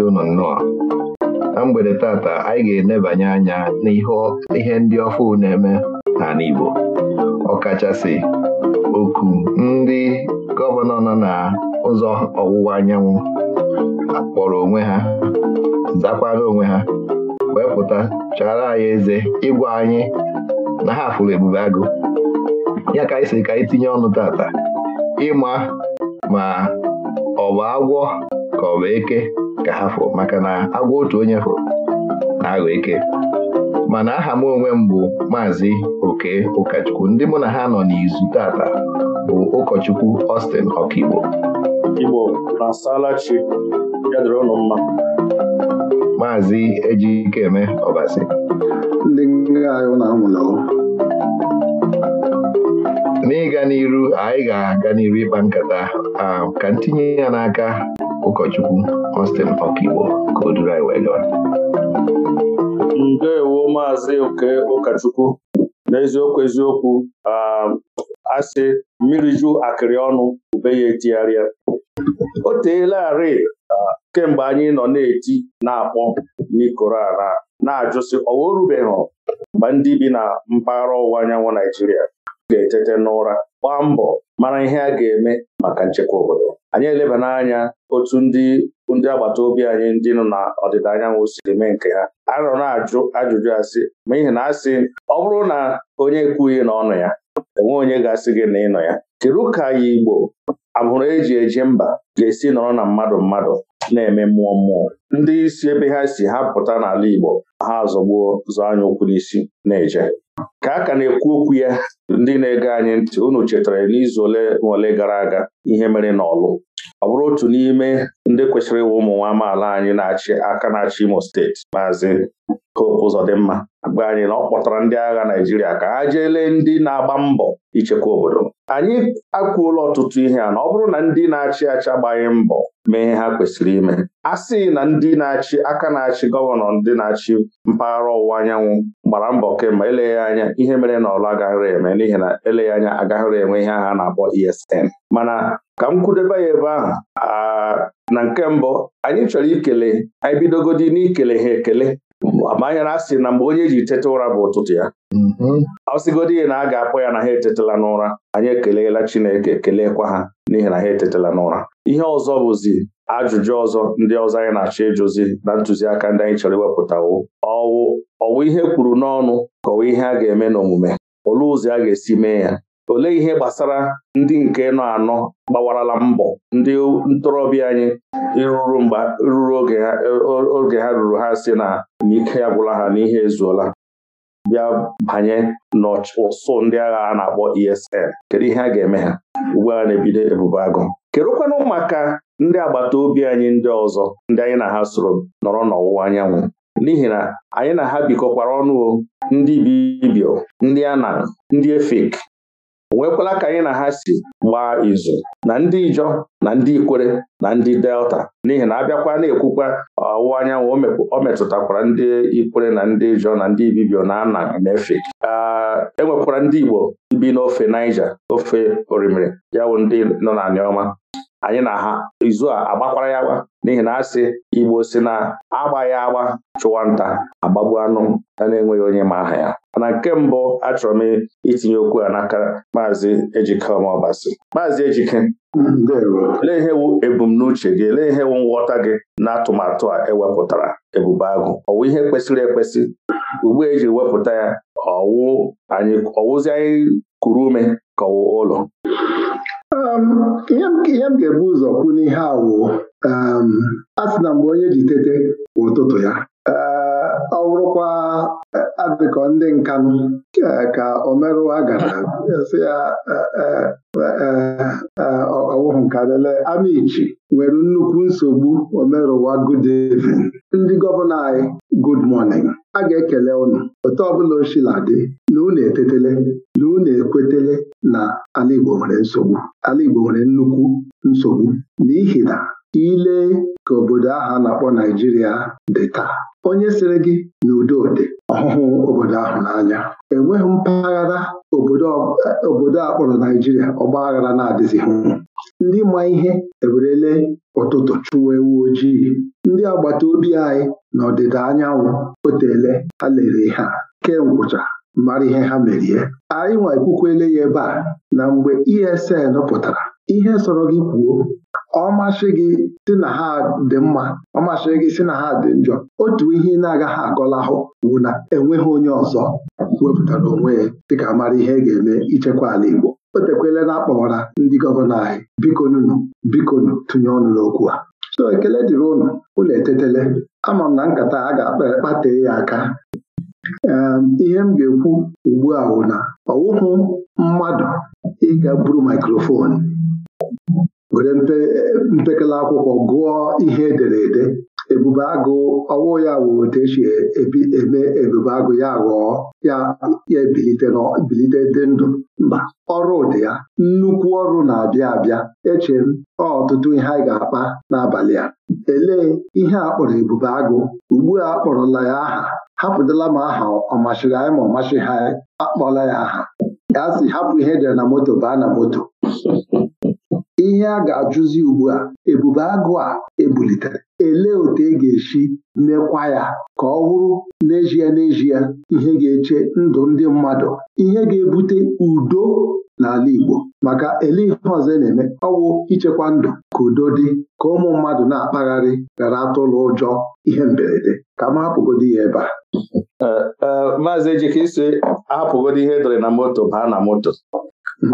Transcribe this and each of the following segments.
na ụnụ nnọọ na mgbede tata anyị ga-enebanye anya n'ihe ndị ọfụ na-eme n'ala Igbo ọkachasị oku ndị gọvanọ nọ na ụzọ ọwụwa anyanwụ kpọrọ onwe ha zakwara onwe ha wee pụta chara anyị eze ịgwa anyị na ha fụrụ ebube agụ ya ka anyị si ka anyị tinye ọnụ tata ịma ma ọ bụ agwọ ka ọ bụ eke ka ha maka na agwọ otu onye fọrọ na-aghọ eke mana aha m onwe m bụ maazị oke ụkọchukwu ndị mụ na ha nọ n'izu tata bụ ụkọchukwu Austin Ọkaigbo Igbo na-asalachi ya ụlọ mma maazị Ejikeme Ọbasi ndị anyị na-amụla n'ịga n'iru anyị ga-aga n'iru ịkpa nkata um, ka ntinye ya n'aka ụkọchukwu Costing Park Igbo ka o duru anyị wee gawa ndewo maazị oke ụkọchukwu n'eziokwu eziokwu um, asị mmiri ju akịrị ọnụ ube ya etigharịa o teelarị um, kemgbe anyị nọ na-eti na-akpọ n'ikoro ala na-ajụsị ọwa orubeghị mgbe ndị bi na mpaghara ọwụwa anyanwụ Naijiria ga-etete n'ụra gbaa mbọ mara ihe a ga-eme maka nchekwa obodo anyị elebana anya otu ndị bụ ndị agbata obi anyị ndị nọ na ọdịda anyanwụ siri mee nke ha a nọ na-ajụ ajụjụ asị ma ihe na asị ọ bụrụ na onye ekwughị na ọnụ ya enwe onye ga-asị gị na ịnọ ya kedu ka ya Igbo abụrụ eji eji mba ga-esi nọrọ na mmadụ mmadụ na-eme mmụọ mmụọ ndị isi ebe ha si ha pụta n'ala Igbo ha azọgbuo zọ anya ụkwụ n'isi na-eje ka a ka na-ekwu okwu ya ndị na-ege anyị ntị unu chetara n'izu ole ma ole gara aga ihe mere n'ọlụ ọ bụrụ otu n'ime ndị kwesịrị ịwụ ụmụ nwa amaala anyị na-achị aka na-achị Imo steeti maazị Hope Uzodimma agba anyị na ọ kpọtara ndị agha Naịjirịa ka ha jeele ndị na-agba mbọ ichekwa obodo anyị akwuola ọtụtụ ihe a na ọ bụrụ na ndị na-achị achị agbaghị mbọ mee ihe ha kwesịrị ime a sị na ndị na-achị aka na-achị gọvanọ ndị na-achị mpaghara ọwụwa anyanwụ gbara mbọ kemgbe eleghị anya ihe mere na ọlụ agaghịrị eme n'ihi na eleghị anya agaghịrị enwe ihe agha na-akpọ ESN mana ka m kwudebe ya ebe ahụ na nke mbụ anyị chọrọ ikele anyị bidogodi n'ikele ha ekele amanya na asị na mgbe onye ji tete ụra bụ ụtụtụ ya mm-hmm. ọ sịgodi ihe na a ga-akpọ ya na ha etetela n'ụra anyị ekeleela Chineke keleekwa ha n'ihi na ha etetela n'ụra ihe ọzọ bụzi ajụjụ ọzọ ndị ọzọ anyị na-achọ ịjụzi na ntụziaka ndị anyị chọrọ iwepụtawo ọwụ ọwụ ihe kwuru n'ọnụ kọwa ihe a ga-eme n'omume olee ụzọ a ga-esi mee ya olee ihe gbasara ndị nke nọ anọ gbawarala mbọ ndị ntorobịa anyị ruru oge ha ruru ha si na n'ike agwụla ha n'ihe ezuola bịa banye n'ụsụ ndị agha a na-akpọ ESN kedu ihe a ga-eme ha ugbu a na-ebido ebubo agụ kedụkwanụ maka ndị agbata obi anyị ndị ọzọ ndị anyị na ha soro nọrọ n'ọwụwa anyanwụ n'ihi na anyị na ha bikọkwara ọnụ ndị Bibio ndị Anan ndị Efik nwekwala ka anyị na ha si gbaa izu na ndị Ijọ na ndị Ikwere na ndị Delta n'ihi na abịakwa na-ekwukwa ọwụwa anyanwụ o metụtakwara ndị Ikwere na ndị Ijọ na ndị Ibibio na Anang na enwekwara ndị Igbo bi n'ofe Niger ofe orimiri ya bụ ndị nọ na Aniọma anyị na ha izu a agbakwara ya agba n'ihi na asị Igbo si na agba ya agba chụwa nta agbagbu anụ ya na-enweghị onye ma aha ya mana nke mbụ achọrọ m itinye okwu a n'aka maazị Ejike Ọmọbasị maazị Ejike lee ihe wu ebumnuche gị lee ihe nghọta gị na atụmatụ a ewepụtara ebube agụ ọ ihe kwesịrị ekwesị ugbu eji wepụta ya ọwụzi anyị kuru ume ka ọwụ ụlọ um, ihe m ga-ebu ụzọ kwu n'ihe awụ um, a sị na mgbe onye ji tete ụtụtụ ya ee ọ bụrụkwa eh, adịkọ ndị nka eh, ka omerụwa gara eh, si ya ọwụhụ nka lele amichi nwere nnukwu nsogbu omerụwa good evening ndị gọvanọ anyị good morning a ga-ekele ụnụ otu ọbụla ochila dị na unu etetele na unu ekwetele na ala Igbo nwere nsogbu ala Igbo nwere nnukwu nsogbu n'ihi na ile ka obodo ahụ a na-akpọ Naijiria dị taa onye sịrị gị na dị ọhụhụ obodo ahụ n'anya enweghị mpaghara obodo a kpọrọ Naijiria ọgba na-adịzighị ndị ma ihe ewerele ụtụtụ chụwa ewu ojii ndị agbata obi anyị n'ọdịda anyanwụ otele ha lere ihe a ngwụcha mara ihe ha merie anyị nwa ekwukwele ya ebe a na mgbe ESN pụtara ihe sọrọ gị kwuo ọmasị gị si na ha dị mma ọ ọmasị gị si na ha dị njọ otu ihe ị na-agaghị agọlahụ bụ na enweghị onye ọzọ wepụtara onwe ya dịka mara ihe e ga-eme ichekwa ala Igbo o tekwele na akpọwara ndị gọvanọ anyị bikonunu bikonu tụnye ọnụ n'okwu a so ekele dịrị ụnụ ụlọ etetele ama m na nkata a ga-akpa ekpatee ya aka Ehm, ihe m ga-ekwu ugbu a bụ na ọwụhụ mmadụ ịga buru maikrofonu were mpekele akwụkwọ gụọ ihe edere ede ebube agụ ọwụ ya wụ otu esi eme ebube agụ ya ghọọ ya ya bilite dị ndụ mba ọrụ dị ya nnukwu ọrụ na-abịa abịa eche m ọtụtụ ihe anyị ga-akpa n'abalị a elee ihe a kpọrọ ebube agụ ugbu a kpọrọla ya aha hapụdala m aha ọ anyị ma ọ masịghị anyị akpọla ya aha ya si hapụ ihe edere na moto baa na moto ihe a ga-ajụzi ugbu a ebube agụ a ebulitere elee otu e ga-esi mekwa ya ka ọ bụrụ n'ezie n'ezie ihe ga-eche ndụ ndị mmadụ ihe ga-ebute udo n'ala Igbo maka ele ihe ọzọ e na-eme ọwụ ichekwa ndụ ka udo dị ka ụmụ mmadụ na-akpagharị gara atụlụ ụjọ ihe mberede ka m hapụgodi ya ebe a maazị Ejike isi ahapụgodi ihe edere na moto baa na moto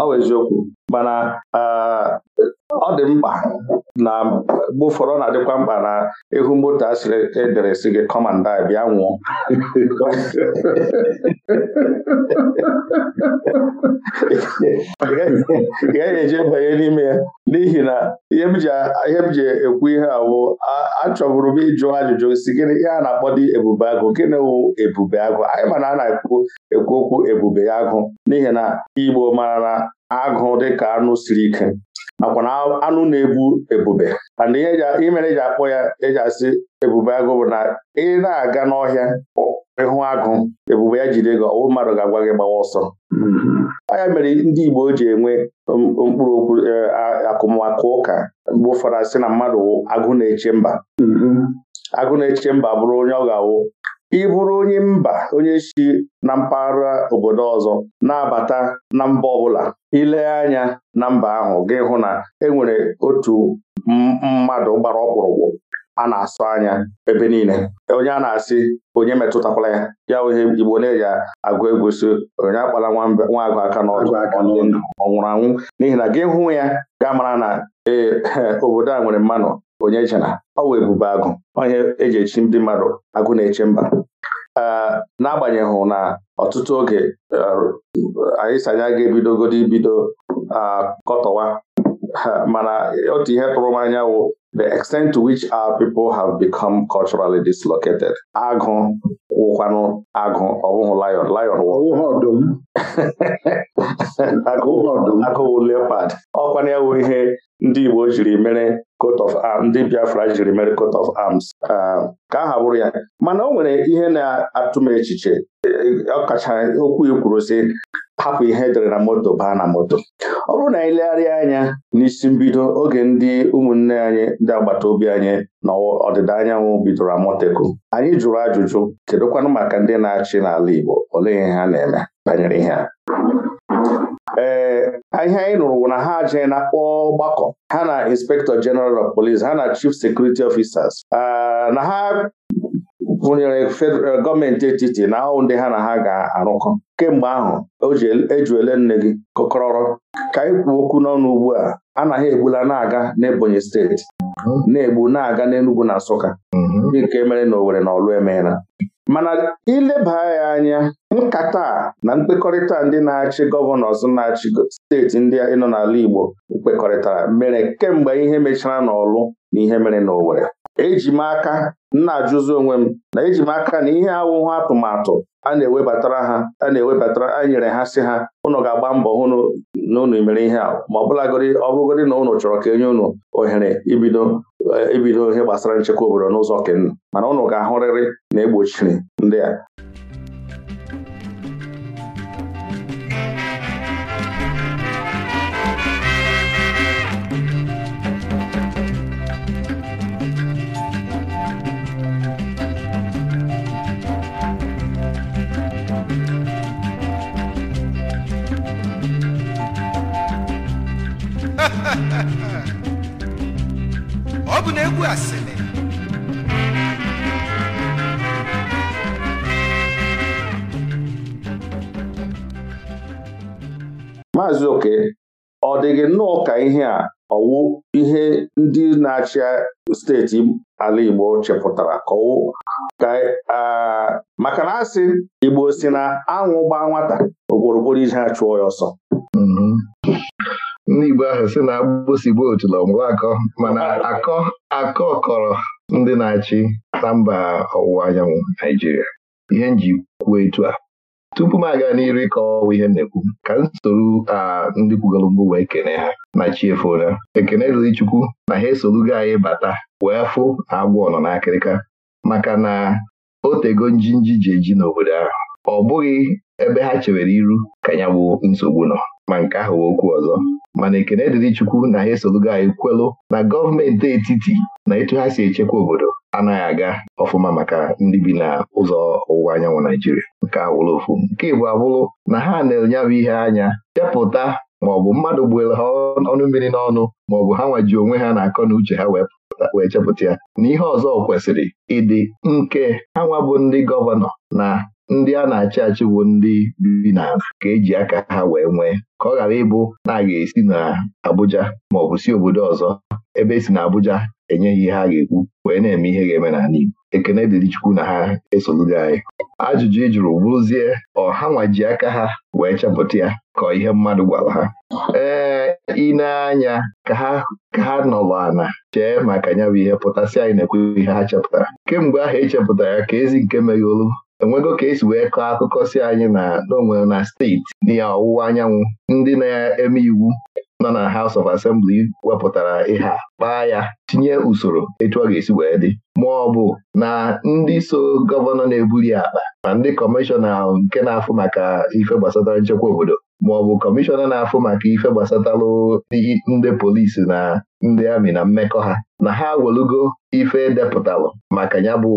ọ bụ eziokwu mana ọ dị mkpa na mgbe ụfọdụ na-adịkwa mkpa na ịhụ moto a sịrị edere si gị kọmanda bịa nwụọ ị gaghị eji banye n'ime ya n'ihi na ihe m ji ekwu ihe awụ achọburu m ịjụ ajụjụ si gịnị ihe a na-akpọ dị ebube agụ gịnị wụ ebube agụ anyị ma na a na-ekwu ekwu okwu ebube agụ n'ihi na Igbo mara na agụ dịka anụ siri ike nakwa na anụ na-ebu ebube mana ihe mere eji akpọ ya eji asị ebube agụ bụ na ị na-aga n'ọhịa ịhụ agụ ebube ya jide gị ọwụ mmadụ ga-agwa gị gbawa ọsọ mm-hmm. ya mere ndị Igbo ji enwe mkpụrụ okwu e, akụmakụ ụka mgbe ụfọdụ asị na mmadụ agụ na-eche mba mm-hmm. agụ na-eche mba bụrụ onye ọ ga-awụ ị bụrụ onye mba onye si na mpaghara obodo ọzọ na-abata na mba ọbụla ile anya na mba ahụ gị hụ na e nwere otu mmadụ gbara ọkpụrụkpụ a na-asụ anya ebe niile onye a na-asị onye metụtakwala ya ya wee Igbo na-eji agụ egwu onye akpala nwa agụ aka n'ọdụ ọ anwụ n'ihi na gị hụ ya ga mara na ee obodo a nwere mmanụ onye chana ọ wee agụ onye eji echi ndị mmadụ agụ na-eche mba n'agbanyeghị na ọtụtụ oge e, anyị sanya ga-ebidogodo ibido akọtọwa mana otu ihe tụrụ m anya the extent to which our people have become culturally dislocated. agụ wụkwanụ agụ ọ bụghị lion lion ọdụm agụwụ leopard ọkwana ya wụ ihe ndị Igbo jiri mere coat of arms ndị Biafra jiri mere coat of arms ah, ka aha bụrụ ya mana o nwere ihe na-atụ m echiche ọkacha okwu ikwuru sị hapụ ihe dere na moto baa na moto ọ bụrụ na anyị legharịa anya n'isi mbido oge ndị ụmụnne anyị ndị agbata obi anyị na ọdịda anyanwụ bidoro Amoteku anyị jụrụ ajụjụ kedụkwanụ maka ndị na-achị n'ala Igbo ole ihe ha na-eme banyere ihe a ee ihe anyị nụrụ bụ na ha ajaghị na akpọ ọgbakọ ha na inspektọ General of Police ha na Chief Security Officers na ha kwụnyere federal gọọmenti etiti na ahụ ndị ha na ha ga-arụkọ kemgbe ahụ o ji ejuele e nne gị kọkọrọrọ ka anyị kwuo okwu n'ọnụ ugbu a anaghị egbula na-aga n'Ebonyi steeti na-egbu na-aga n'Enugwu na Nsụka nke mere na Owerri na Ọlụ emeela mana ileba ya anya nkata na mkpekọrịta ndị na-achị gọvanọs na-achị steeti ndị nọ n'ala Igbo kpekọrịtara mere kemgbe ihe mechara n'Ọlụ na ihe mere na Owerri eji m aka m na-ajụzi onwe m na eji m aka na ihe awụhụ atụmatụ a na-ewebatara ha a na-ewebatara a nyere ha si ha ụnụ ga-agba mbọ hụ na ụnụ ihe a ma ọ bụlagorị na ụnụ chọrọ ka enye ụnụ ohere ibido ibido e ihe gbasara nchekwa obodo n'ụzọ kenu mana ụnụ ga-ahụrịrị na egbochiri ndị a ọ bụ na egwu asịrị maazị oke ọ dịghị nnọọ ka ihe a ọwụ ihe ndị na-achị steeti ala Igbo chepụtara ka ka maka na asị Igbo si na anwụ gbaa nwata iji ije chụọ ya ọsọ mm-hmm. ndị Igbo ahụ si na agbụsịgbo otula ọmụwa akọ mana akọ akọ kọrọ ndị na-achị na mba ọwụwa anyanwụ Naijiria ihe nji kwuo etu a tupu m aga n'iru ịkọwa ihe m na-ekwu ka m soro ndị kwugoro mbụ wee kene ha na chiefona ekene riri Chukwu na ha gị anyị bata wee fụ na agwọ nọ n'akịrịka maka na o tego njinji ji eji n'obodo ahụ ọ bụghị ebe ha chewere iru ka ya bụ nsogbu nọ ma nke ahụ okwu ọzọ mana ekene dịrị Chukwu na ha esolugo anyị kwelụ na gọọmenti etiti na etu ha si echekwa obodo anaghị aga ọfụma maka ndị bi na ụzọ ọwụwa anyanwụ Naijiria nke awụrụ ofu nke bụ abụrụ na ha na-enye bụ ihe anya chepụta maọbụ mmadụ gbuere ha ọnụ mmiri n'ọnụ maọbụ ha nwaji onwe ha na-akọ na uche ha wee chepụta ya na ihe ọzọ kwesịrị ịdị nke ha nwa bụ ndị gọvanọ na ndị a na-achị achị bụ ndị bi na ka eji aka ha wee nwee ka ọ ghara ịbụ na a ga-esi na Abuja ma ọ bụ si obodo ọzọ ebe esi na Abuja enyeghị ihe a ga-ekwu wee na-eme ihe ga-eme n'ala Igbo ekene dịrị Chukwu na ha esoluru anyị ajụjụ ị jụrụ ọha nwaji aka ha wee chepụta ya ka ihe mmadụ gwara ha ee ịneanya ka ha nọrọ ana chee maka ya bụ ihe pụtasị anyị na-ekwe ihe ha chepụtara kemgbe ahụ echepụtara ya ka ezi nke olu. enwego ka esi wee kọọ akụkọ si anyị na n'onwere na steeti N'ihe ọwụwa anyanwụ ndị na-eme iwu nọ na House of Assembly wepụtara ihe a kpaa ya tinye usoro etu ọ ga-esi wee dị ma ọ bụ na ndị so gọvanọ na-ebuli akpa ma ndị kọmishọna nke na-afụ maka ife gbasatara nchekwa obodo ma ọ bụ kọmishọna na-afụ maka ife gbasatalụ ndị polisi na ndị amị na mmekọ ha na ha welugo ife depụtalụ maka ya bụ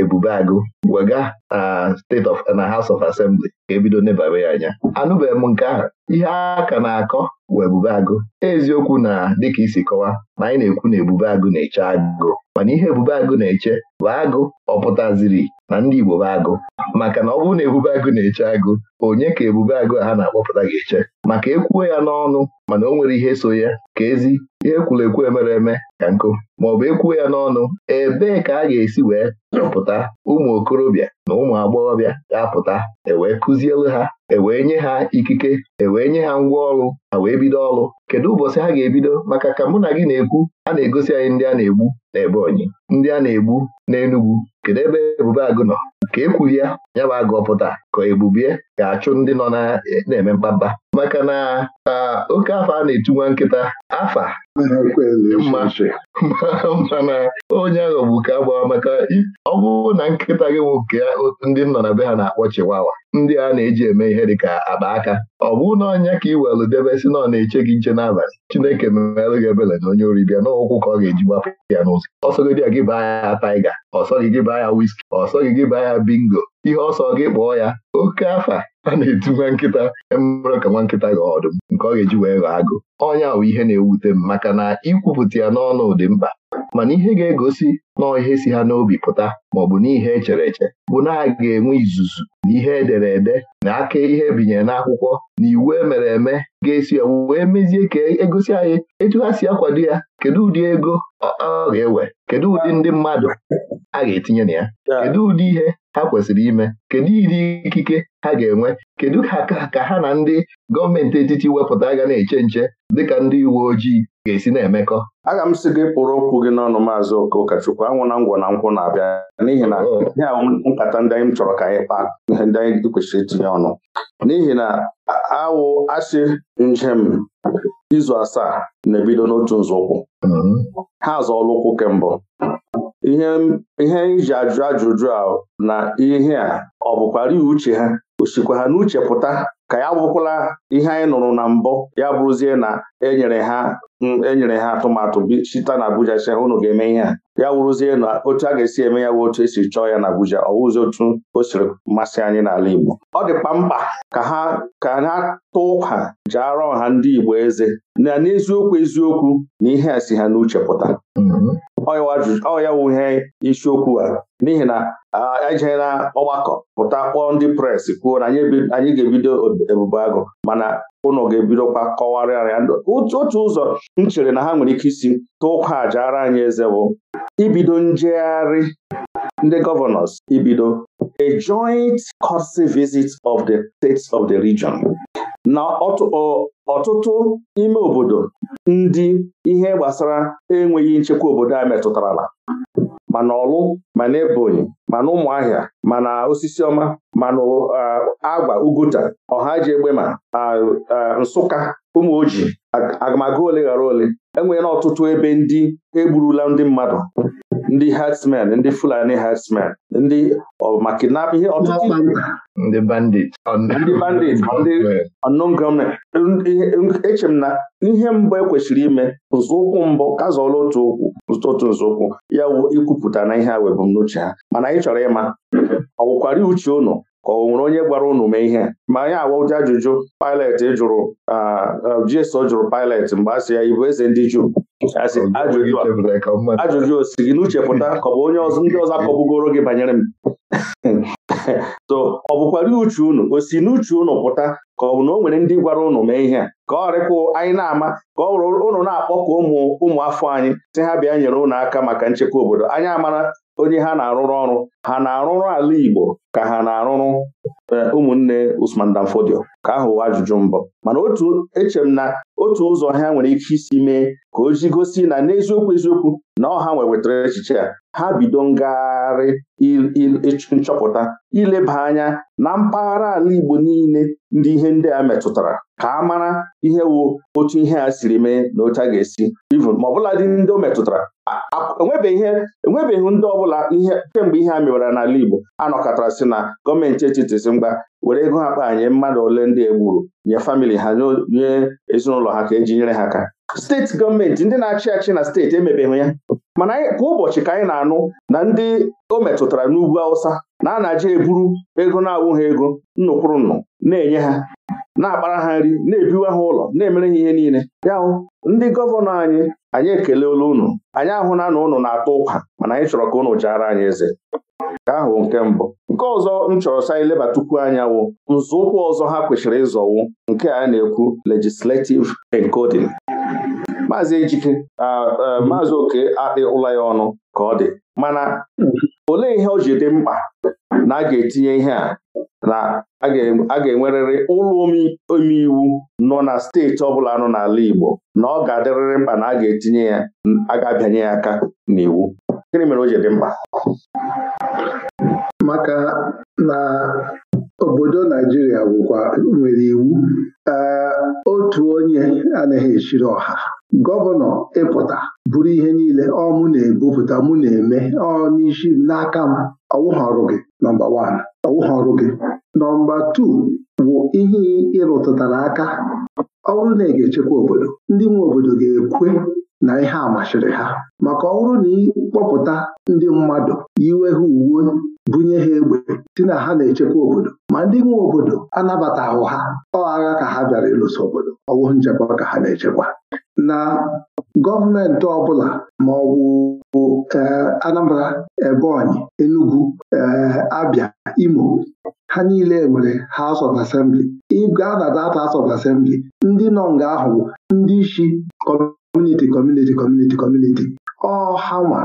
Ebube Agụ wega na State of na House of Assembly ka ebido nebara ya anya anụbeghị m nke ahụ ihe a ka na-akọ wụ Ebube Agụ eziokwu na dịka isi kọwa na anyị na-ekwu na Ebube Agụ na-eche agụ mana ihe Ebube Agụ na-eche bụ agụ ọpụtaziri na ndị Igbo bụ agụ maka na ọ bụrụ na Ebube Agụ na-eche agụ onye ka Ebube Agụ a ha na-akpọpụta ga-eche maka ekwuo ya n'ọnụ mana o nwere ihe so ya ka ezi ihe kwuru ekwu emere eme ka nkụ bụ ekwuo ya n'ọnụ ebee ka a ga-esi wee chọpụta ụmụ okorobịa na ụmụ agbọghọbịa ga-apụta ewee kụzielu ha ewee nye ha ikike ewee nye ha ngwa ọrụ ha wee bido ọrụ kedu ụbọchị ha ga-ebido maka ka mụ na gị na-ekwu a na-egosi anyị ndị a na-egbu na Ebonyi ndị a na-egbu n'Enugwu kedu ebe Ebube Agụ nọ ka ekwuru ya ya bụ agụ pụta ka Ebubie ga-achụ ndị nọ na-eme mkpamkpa maka na oke afọ a na-etu nwa nkịta afa mana onye aghọgbu ka agbawa maka ọ bụrụ na nkịta gị nwoke ndị nọ na be ha na-akpọ chiwawa ndị a na-eji eme ihe ka akpa aka ọ bụ na ọnya ka ị welụ debe si na ọ na-eche gị nche n'abalị Chineke memelụ gị ebele na onye bịa n'ụkwụ ka ọ ga-eji gbapụ ya n'ụzọ ọsọ gị baa ya taiga ọsọ gị baa ya wiski ọsọ gị baa ya bingo ihe ọsọ gị kpọọ ya oke afa a na-etu nwa nkịta mmerụ e ka nwa nkịta ga ọdụm nke ọ ga-eji wee ghọọ agụ ọnya bụ ihe na-ewute m maka na ikwupụta ya n'ọnụ dị mkpa mana ihe ga-egosi nọọ ihe si ha n'obi pụta bụ n'ihe echere eche bụ na a ga-enwe izuzu na ihe edere ede na aka ihe ebinyere n'akwụkwọ na iwu emere eme ga-esi wee mezie ka egosi anyị etu ha si akwado ya kedu ụdị ego ọ ga-ewe kedu ụdị ndị mmadụ a ga-etinye na ya kedu ụdị ihe ha kwesịrị ime kedu ịdị ikike ha ga-enwe kedu ka ha na ndị gọọmenti etiti wepụta ga na-eche nche dịka ndị uwe ojii ga-esi na-emekọ aga m sị gị kpụrụ okwu gị n'ọnụ maazị Okachukwu anwụ na ngwọ na nkwụ na-abịa n'ihi na oh. nkata ndị anyị chọrọ ka anyị kpaa ihe ndị anyị kwesịrị itinye ọnụ n'ihi na awụ asị njem izu asaa na-ebido n'otu nzọụkwụ mm-hmm. ha azọọla ụkwụ kembụ ihe iji ajụ ajụjụ a na ihe a ọ bụkwara ihe uche ha o sikwa ha n'uche pụta ka ya bụkwala ihe anyị nụrụ na mbụ ya bụrụzie na enyere ha enyere ha atụmatụ site na Abuja si unu ga-eme ihe a ya wụrụzie na otu a ga-esi eme ya bụ otu esi chọọ ya na Abuja ọ wụzi otu o siri mmasị anyị n'ala Igbo ọ dịkwa mkpa ka ha ka ha tụ ụka arọ ọha ndị Igbo eze na n'eziokwu eziokwu na ihe a si ha n'uche pụta ọ ya wuhe isiokwu a n'ihi na ihe na ọgbakọ pụta kpọọ ndị pres kwuo na anyị ga-ebido ebubo agụ mana ụnọ ga-ebidokwa kọwarịa ndụ otu ụzọ m chere na ha nwere ike isi tụkwa aja ara anyị eze bụ ibido njegharị ndị gọvanọs ibido a joint court visit of the states of the region na ọtụtụ ime obodo ndị ihe gbasara enweghị nchekwa obodo a metụtarala mana ọlụ mana ebonyi mana ụmụ ụmụahịa mana osisi ọma mana agwa e, agba uguta ọha ji egbe ma e, nsụka ụmụ oji agamaga ole ghara ole enweela ọtụtụ ebe ndị egburula ndị mmadụ ndị herdsmen ndị fulani herdsmen ndị na ihe ọtụtụ ndị bandit ndị bandit ndị unknown e, na ihe mbụ ekwesịrị ime nzọụkwụ mbụ kazọọla otu ụkwụ. otu nzọụkwụ ya wụ ikwupụta na ihe a ebumnuche ha mana anyị chọrọ ịma ọ uche unu ka ọ nwere onye gwara unu mee ihe ma anyị awa ụdị ajụjụ Pilet jụrụ GSO jụrụ Pilet mgbe a sị ya ibụ eze ndị Juu ajụjụ o si gị n'uche pụta ka ọ bụ onye ndị ọzọ akọbugoro gị banyere m so ọ bụkwara uche unu o si n'uche unu pụta ka ọ bụ na o nwere ndị gwara unu mee ihe a ka ọ rịkwụ anyị na-ama ka ọ rụrụ unu na-akpọkọ ụmụ ụmụ afọ anyị si ha bịa nyere unu aka maka nchekwa obodo anyị amara onye ha na-arụrụ ọrụ ha na-arụrụ ala Igbo ka ha na-arụrụ eh, ụmụnne Usman Dan ka ahụ ajụjụ mbụ mana otu eche m na otu ụzọ ha nwere ike isi mee ka o ji gosi na n'eziokwu eziokwu na ọha nwewetara echiche a. ha bido ngagharị nchọpụta ileba anya na mpaghara ala Igbo niile ndị ihe ndị a metụtara ka a mara ihe wụ otu ihe a siri mee na otu a ga-esi ivun ma ọbụla dị ndị o metụtara enwebeghị ndị ọbụla ihe kemgbe ihe a mewara n'ala Igbo anọkọtara sị na gọọmenti etiti si mgba were ego ha kpanye mmadụ ole ndị egburu nye famili ha nye ezinụlọ ha ka eji nyere ha aka steeti gọọmenti ndị na-achị achị na steeti emebeghị ya mana kwa ụbọchị ka anyị na-anụ na ndị o metụtara n'ugwu Awụsa na anaje eburu ego na awụ ha ego nnụkwụrụ nnụ na-enye ha na-akpara ha nri na-ebiwa ha ụlọ na-emere ha ihe niile ya hụ ndị gọvanọ anyị anyị ekeleela unu anyị ahụ na ụnụ na-atụ ụkwa mana anyị chọrọ ka unu jaara anyị eze nke ahụ nke mbụ nke ọzọ m chọrọ sa anyị lebatukwu anya wụ nzọụkwụ ọzọ ha kwesịrị ịzọwu nke a na-ekwu legislative encoding maazị ejike maazị oke akpị ụlọ ya ọnụ ka ọ dị mana olee ihe o ji dị mkpa na a ga-etinye ihe a na a ga-enwerịrị ụlọ omeiwu nọ na steeti ọbụla nọ n'ala Igbo na ọ ga-adịrịrị mkpa na a ga-etinye ya a ga-abịanye ya aka n'iwu gịnị mere o ji dị mkpa maka na obodo Naijiria bụkwa nwere iwu otu onye anaghị esiri ọha gọvanọ ịpụta bụrụ ihe niile ọ mụ na-ebupụta mụ na-eme ọ n'isi n'aka m ọwụghị ọrụ gị nọmba wan ọwụghị ọrụ gị nọmba tuu bụ ihe ịrụtụtara aka ọ bụrụ na ị ga-echekwa obodo ndị nwe obodo ga-ekwe na ihe a machiri ha maka ọ bụrụ na ịkpọpụta ndị mmadụ yiwe ha uwe bunye ha egbe si na ha na-echekwa obodo ma ndị nwe obodo anabataghị ha ọ agha ka ha bịara ịlụso obodo ọwụ nchekwa ka ha na-echekwa na gọọmenti ọbụla ma ọ bụ e, Anambra Ebonyi Enugu e, Abia Imo ha niile nwere House of Assembly ịga na data House of Assembly ndị nọ nga ahụ ndị isi kọmuniti kọmuniti kọmuniti kọmuniti ọhanwa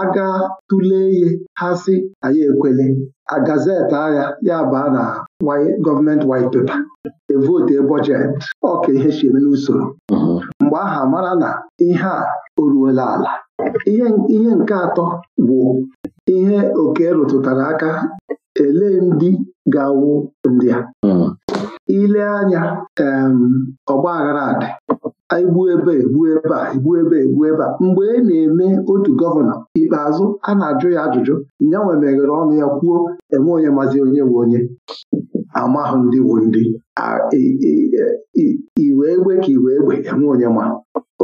aga tụlee ihe ha si anyị ekwele a gazeti agha ya baa na gọọmenti white paper evote bọjetị ọka ihe eme n'usoro mm-hmm. mgbe aha mara na ihe a oruola ala ihe nke atọ bụ ihe oke rụtụtara aka ele ndị ga-awụ ndị a mm-hmm. ile anya ọgba aghara adị egbu ebe egbu ebe a egbu ebe egbu ebe a mgbe e na-eme otu gọvanọ ikpeazụ a na-ajụ ya ajụjụ nwe meghere ọnụ ya kwuo enwe onye mazi onye nwe onye amahụ ndị bụ ndị iwe egbe e, e, ka iwe egbe enwe onye ma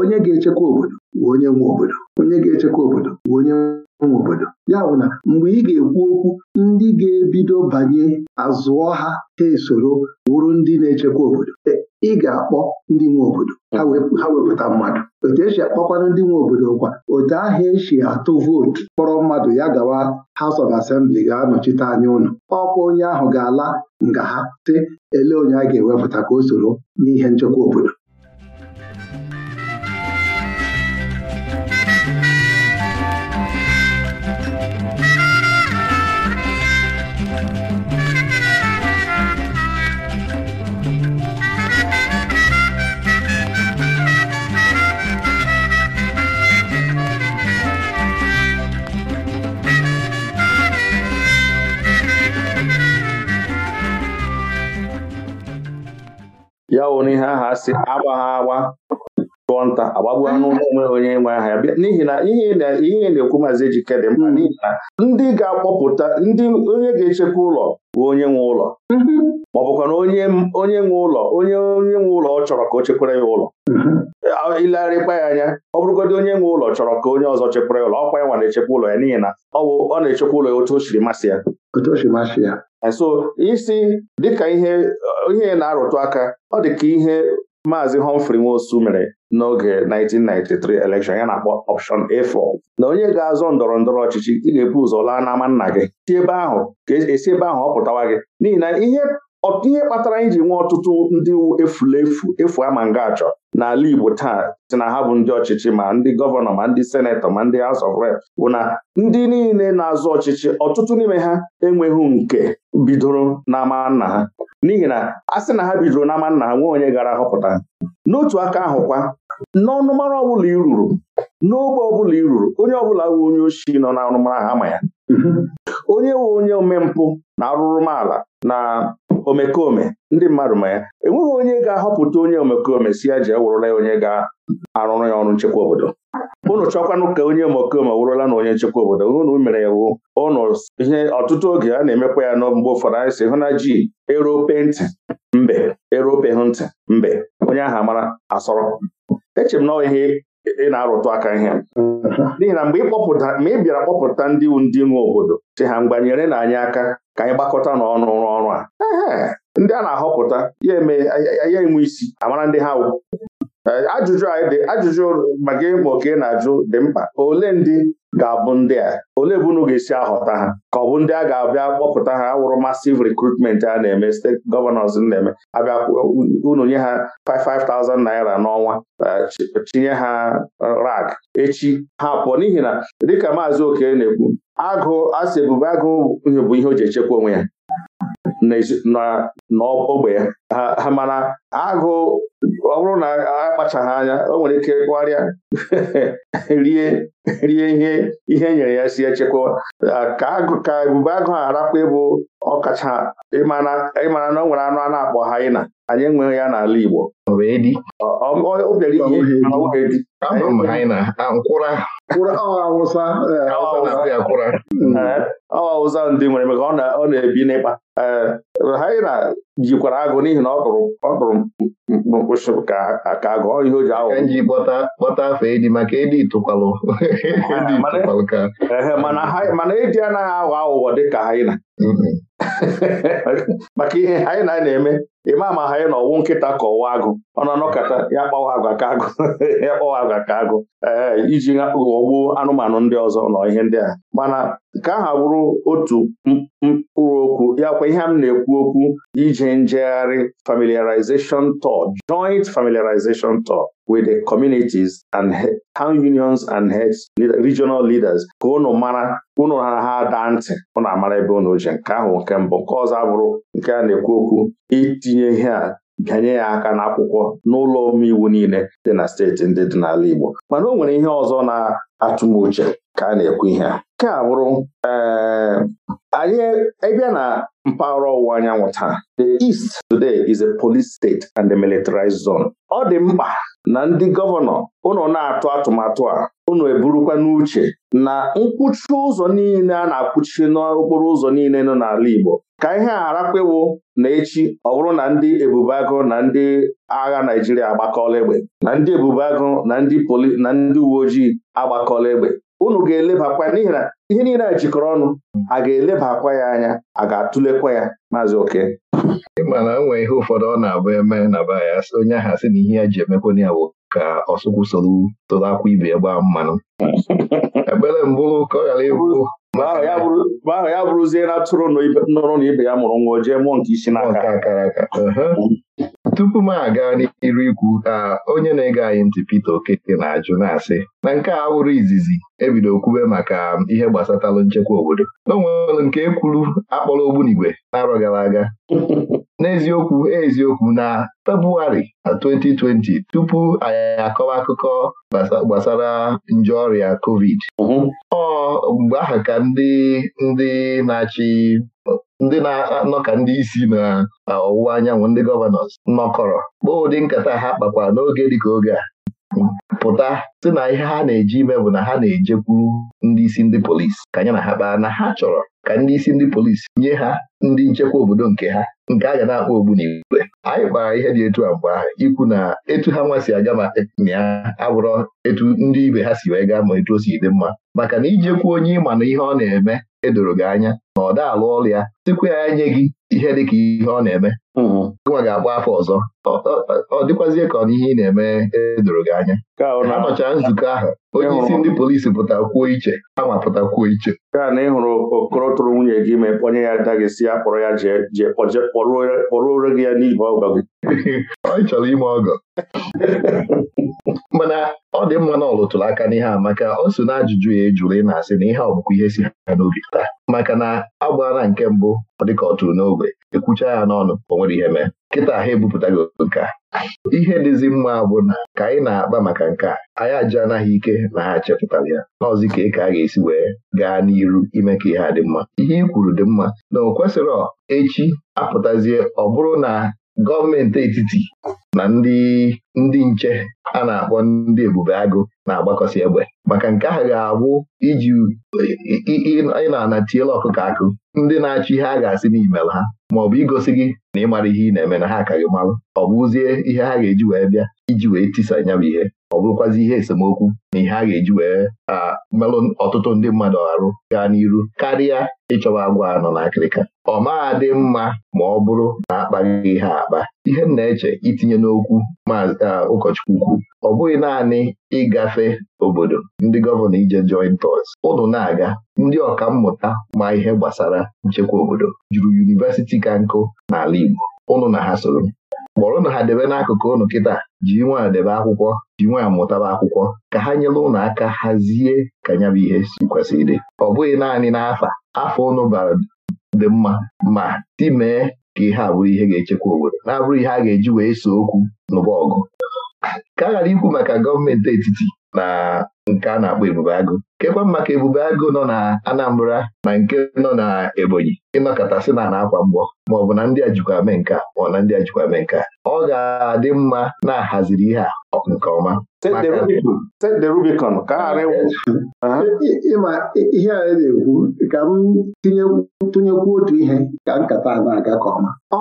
onye ga-echekwa obodo bụ onye nwe obodo onye ga-echekwa obodo bụ onye obodo ya bụ na mgbe ị ga-ekwu okwu ndị ga-ebido banye azụọ ha ha esoro wụrụ ndị na-echekwa obodo ị ga-akpọ ndị nwe obodo ha wepụta mmadụ otu esi akpọkwanụ ndị nwe obodo kwa otu ahụ esi atụ vootu kpọrọ mmadụ ya gawa House of Assembly ga-anọchite anya ụlọ ọkwa onye ahụ ga-ala nga ha sị ele onye a ga-ewepụta ka o soro n'ihe nchekwa obodo ya wụrụ ihe ahụ si agba ha agba tụọ nta agbagbuo anụ n'onwe onye nwe aha ya n'ihi na ihe na-ekwu maazị ejikedị dị mkpa hmm. n'ihi na ndị ga-akpọpụta ndị onye ga-echekwa ụlọ bụ onye nwe ụlọ hmm. ma ọ bụkwa na onye nwe ụlọ onye onye nwe ụlọ ọ chọrọ ka o chekwara ya ụlọ ilegharịkwa hmm. ya anya ọ bụrụgodị onye nwe ụlọ chọrọ ka onye ọzọ chekwara ya ụlọ ọkwa ya nwa na-echekwa ụlọ ya n'ihi na ọ na-echekwa ụlọ ya otu o siri masị ya so isi dịka ihe ihe na-arụtụ aka ọ dị ka ihe Maazị Humphrey Nwosu mere n'oge 1993 elekshọn ya na-akpọ ọpshọn A4 na onye ga-azọ ndọrọ ndọrọ ọchịchị ị ga-ebu ụzọ laa n'ama nna gị si ebe ahụ ka esi e ebe ahụ ọ pụtawa gị n'ihi na ihe ọtụ ihe kpatara anyị ji nwee ọtụtụ ndị efulefu efu ama nga achọ n'ala Igbo taa si na ha bụ ndị ọchịchị ma ndị gọvanọ ma ndị senetọ ma ndị azọ of Rep bụ na ndị niile na-azụ ọchịchị ọtụtụ n'ime ha enweghị nke bidoro n'ama nna ha n'ihi na a sị na ha bidoro n'ama nna ha nwee onye gara họpụta n'otu aka ahụ kwa, n'ọnụmara ọbụla i ruru n'ogbe ọbụla i ruru onye ọbụla bụ onye oshi nọ n'ọnụmara ha ama ya mhm. onye wụ onye omempụ na arụrụmala na omekome ndị mmadụ ma ya enweghị onye ga-ahọpụta onye omekome si ya ji e ewụrụla ya onye ga-arụrụ ya ọrụ nchekwa obodo Ụnụ chọkwanụ ka onye omekome wụrụla na onye nchekwa obodo ụnụ mere ya wu ụnụ ihe ọtụtụ oge a na-emekwa ya mgbe ụfọdụ anyị si hụ na ji erope ntị mbe erope ntị mbe onye ahụ amara asọrọ echere m na ihe ị na-arụtụ aka ihe n'ihi na mgbe ịkpọpụta ma ị bịara kpọpụta ndị ndị nwe obodo si ha mgbanyere na anyị aka ka anyị gbakọta n'ọnụ ọrụ a ndị a na-ahọpụta ya eme ya enwe isi amara ndị ha ajụjụ anyị dị ajụjụ maka ịmụ ka ị na-ajụ dị mkpa ole ndị ga-abụ ndị a ole bụ unu ga-esi ahọta ha ka ọ bụ ndị a ga-abịa kpọpụta ha awụrụ masiv rekrutment a na-eme steeti gọvanọs na-eme abịa unu nye ha 5,000 naira n'ọnwa chinye eh, ha rag echi ha pụọ n'ihi na dịka maazị oke na-ekwu agụ asị ebube agụ bụ ihe o ji echekwa onwe ya n'ogbe ya ha mana agụ ọ bụrụ na akpachaghị anya o nwere ike gwarịa rie rie ihe ihe nyere ya si echekwa ka ebube agụ a arakwa ịbụ ọkacha ịmara na o nwere anụ a na-akpọ ịna anyị enweghị ya n'ala Igbo ọ bịara awụsa eh, eh, awụsa ndị nwere maka ọ na-ebi n'ịkpa eh, haina jikwara agụ n'ihi na ọ bụrụ ọ ka agụ ọ ihe o ji awụ ji kpọta afọ edi maka edi tụkwalụ mana edi anaghị aghọ aghụghọ dịka haina maka ihe anyị na na-eme ịma ma anyị na ọwụ nkịta ka ọwa agụ ọ na anọkọta ya kpawa agwa ka agụ ya kpawa agwa ka agụ iji ghọgbuo anụmanụ ndị ọzọ nọ ihe ndị a mana nke ahụ bụrụ otu mkpụrụ okwu ya kwa ihe m na-ekwu okwu ije njegharị familiarization tour joint familiarization tour with the communities and town unions and heads regional leaders ka unu mara unu ha ha daa ntị na amara ebe unu je nke ahụ nke mbụ nke ọzọ abụrụ nke a na-ekwu okwu itinye ihe a bịanye ya aka n'akwụkwọ n'ụlọ omeiwu niile dị na steeti ndị dị n'ala Igbo mana o nwere ihe ọzọ na-atụ uche ka a na-ekwu ihe a nke a bụrụ ee eh, anyị na mpaghara ọwụwa anyanwụ taa the east today is a police state and a militarized zone ọ dị mkpa na ndị gọvanọ ụnụ na-atụ atụmatụ a ụnụ eburukwa n'uche na nkwụchi ụzọ niile a na-akwụchi n'okporo ụzọ niile nọ n'ala Igbo ka ihe a harakwewo na echi ọ bụrụ na ndị ebubeagụ na ndị agha Naijiria agbakọla egbe na ndị ebubeagụ na ndị poli na ndị uwe ojii agbakọla egbe unu ga-elebakwa n'ihi na ihe niile a jikọrọ ọnụ a ga-elebakwa eleba ya anya a ga-atụlekwa ya maazị oke ịma na nwee ihe ụfọdụ ọ na-abụ eme na ba ya onye ahụ sị na ihe a ji emekwa ya bụ ka ọsụkwụ soro tụrụ akwa ibe ya gbaa mmanụ ebere mbụ ka ọ ghara ịbụ mgbe ahụ ya bụrụzie na tụrụ na ibe ya mụrụ nwa o jee mụọ nke isi aka tupu m aga n'iru ikwu a onye na-ege anyị ntị Peter Okeke na-ajụ na-asị na nke a wụrụ izizi ebido kwube maka ihe gbasatalụ nchekwa obodo n'onwelụ nke e kwuru akpọrọ ogbunigwe n'arọ gara aga n'eziokwu eziokwu na Febụwarị 2020 tupu anyị akọwa akụkọ gbasara nje ọrịa COVID ọ mgbe aha ka ndị ndị na-achị ndị na-anọ ka ndị isi na ọwụwa anyanwụ ndị gọvanọs nọkọrọ kpọọ ụdị nkata ha kpakwara n'oge dịka oge a pụta sị na ihe ha na-eji ime bụ na ha na-ejekwuru ndị isi ndị polisi ka ya na ha kpaa na ha chọrọ ka ndị isi ndị polisi nye ha ndị nchekwa obodo nke ha nke a ga na-akpọ ogbunigwe anyị kpara ihe dị etu a ahụ ikwu na etu ha nwa si aga ma ya abụrọ etu ndị ibe ha si wee gaa ma etu o si dị mma maka na ijekwu onye ịma na ihe ọ na-eme edoro gị anya na ọ daalụ ọlụ ya sikwa ya nye gị ihe dịka ihe ọ na-eme mm-hmm. nwa ga-agba afọ ọzọ ọ dịkwazie ka ọ na ihe ị na-eme edoro gị anya ha nọchara nzukọ ahụ onye isi ndị polisi kwuo iche ama pụtakwuo iche gaa na ịhụrụ okoro tụrụ nwunye gị ma onye ya ada gị si ya kpọrọ ya jee kpọrọ ore gị ya n'ihi ọgọ gị ọ chọrọ ime ọgọ mana ọ dị mma na ọlụtụrụ aka n'ihe a maka o so n'ajụjụ ya ejụrụ ị na-asị na ihe ọbụkwa ihe si ha n'obi taa maka na agbara na nke mbụ ọ dịka ọ tụrụ n'ogbe ekwucha ya n'ọnụ o nwere ihe mee kịta ha ebupụta gị nke a ihe dịzi mma bụ na ka anyị na-akpa maka nke a anyị aja anaghị ike na ha chepụtara ya n'ọzi ka eke a ga-esi wee gaa n'iru ime ka ihe a dị mma ihe ị kwuru dị mma na o kwesịrị echi apụtazie ọ bụrụ na gọọmenti etiti na ndị nche a na-akpọ ndị ebube agụ na agbakọsi egbe maka nke ahụ ga-abụ iji ị na-anatiela ọkụkọ akụ ndị na achọ ihe a ga-asị n'imel ha ma ọ bụ igosi gị na ịmara ihe ị na-eme na ha karịa malụ ọ bụ ụzie ihe ha ga-eji wee bịa iji wee tisa nya bụ ihe ọ bụrụkwazi ihe esemokwu na ihe a ga-eji wee melụ ọtụtụ ndị mmadụ arụ gaa n'iru karịa ịchọba agwa anọ na akịrịka ọ maa dị mma ma ọ bụrụ na akpaghị ihe akpa ihe m na-eche itinye n'okwu ma ụkọchukwu kwu ọ bụghị naanị ịgafe obodo ndị gọvanọ ije joint us ụnụ na-aga ndị ọka mmụta ma ihe gbasara nchekwa obodo juru yunivesiti ka nkụ n'ala Igbo ụnụ na ha soro kpọrọ na ha debe n'akụkụ ụnụ kịta ji nwa debe akwụkwọ ji nwa mụtaba akwụkwọ ka ha nyere ụnụ aka hazie ka ya bụ ihe si kwesịrị ọ bụghị naanị n'afa afọ ụnụ bara dị mma ma timee ka ihe a bụrụ ihe ga-echekwa obodo na-abụrụ ihe a ga-eji wee so okwu n'ụba ọgụ ka a ghara ikwu maka gọọmenti etiti na nke a na-akpọ Ebube Agụ kekwa ka Ebube Agụ nọ na Anambra na nke nọ na Ebonyi ịnọkọtasị na na-akwa mgbọ ma ọ bụ na ndị a jikwa mee nke ma ọ na ndị a jikwa mee nke ọ ga-adị mma na-ahaziri ihe a nke ọma ịma ihe a na-ekwu ka m tụnyekwu otu ihe ka nkata a na-aga ka ọma ọ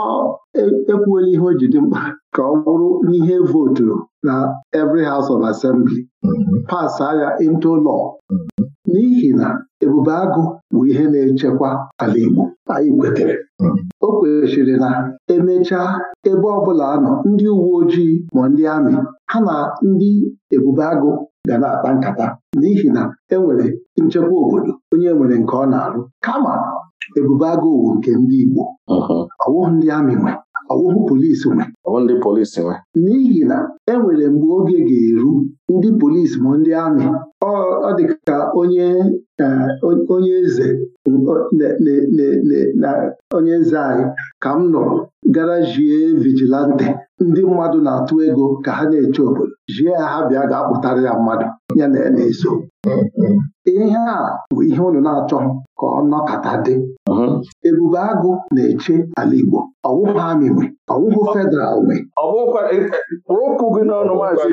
e, ekwuola ihe o ji dị mkpa ka ọ bụrụ n'ihe voturu na every house of assembly mm-hmm. pas agha into law n'ihi na ebube agụ bụ ihe na-echekwa ala Igbo anyị kwetere o kwesịrị na emechaa ebe ọ bụla anọ ndị uwe ojii ma ndị amị ha na ndị ebube agụ ga na-akpa nkata n'ihi na enwere nchekwa obodo onye nwere nke ọ na-arụ kama ebube agụ nke ndị Igbo ọwụghị ndị amị nwee ọwụhụ polisi nwe ndị polisi nwe n'ihi na enwere mgbe oge ga-eru ndị polisi ma ndị amị ọ dị ka onye e, onye eze na onye eze anyị ka m nụrụ gara jie vigilante ndị mmadụ na-atụ ego ka ha na-eche obodo jie ya ha bịa ga-akpụtara ya mmadụ ya na ya eso mm, mm. ihe a bụ ihe ụlọ na-achọ ka ọ nọkọta dị ebube agụ na-eche ala Igbo ọwụwa amị nwe ọwụwụ federal nwe kpụrụkụ e, e, gị n'ọnụ maazị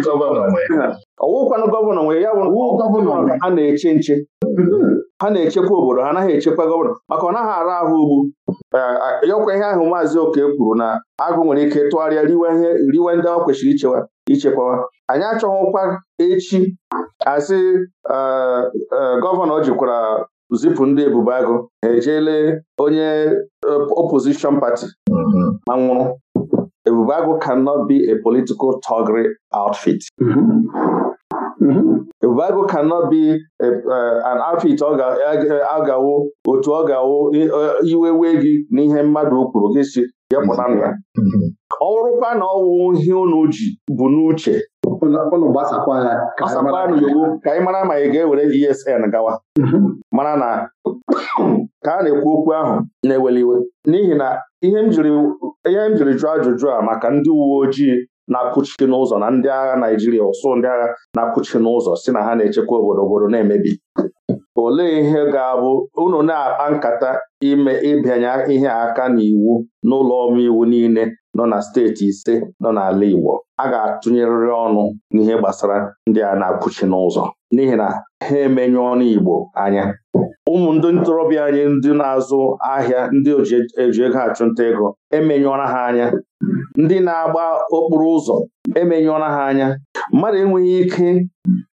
ọwụkwanụ gọvanọ nwe ya bụ gọvanọ ha na-eche nche ha na-echekwa obodo ha anaghị echekwa gọvanọ maka ọ naghị ara ahụ ugbu yọkwa ihe ahụ maazị oke kwuru na agụ nwere ike tụgharịa riwe ndị ọ kwesịrị ichewa ichekwawa anyị achọghịkwa echi asị gọvanọ jikwara zipụ ndị ebubo agụ ha ejele onye eh, opposition party mm-hmm. ma nwụrụ ebubo agụ cannot be a political toggery outfit mm-hmm. mm-hmm. Ebubeagụ cannot be eh, an outfit ọ ga eh, otu ọ ga-awụ iwe gị n'ihe mmadụ kwuru gị si ya pụta na ya ọ na ọwụ ihe unu ji bụ n'uche ụlọ ka anyị mara ma ị ga-ewere ESN gawa mhm. mara na ka a na-ekwu okwu ahụ na-eweli iwe n'ihi na ihe m jiri jụọ ajụjụ a maka ndị uwe ojii na-akụchi n'ụzọ na ndị agha Naịjirịa ụsụ ndị agha na-akụchi n'ụzọ si na ha na-echekwa obodo obodo na-emebi olee ihe ga-abụ unu na-akpa nkata ime ịbịanye ihe aka n'iwu n'ụlọ omeiwu niile nọ na steeti ise nọ n'ala Igbo a ga-atụnyerịrị ọnụ n'ihe gbasara ndị a na-apụchi n'ụzọ n'ihi na ha emenye ọnụ Igbo anya ụmụ ndị ntorobịa anyị ndị na-azụ ahịa ndị eji e, e ego achụnta ego emenyụọra ha anya ndị na-agba okporo ụzọ emenyụọra ha anya mmadụ enweghị ike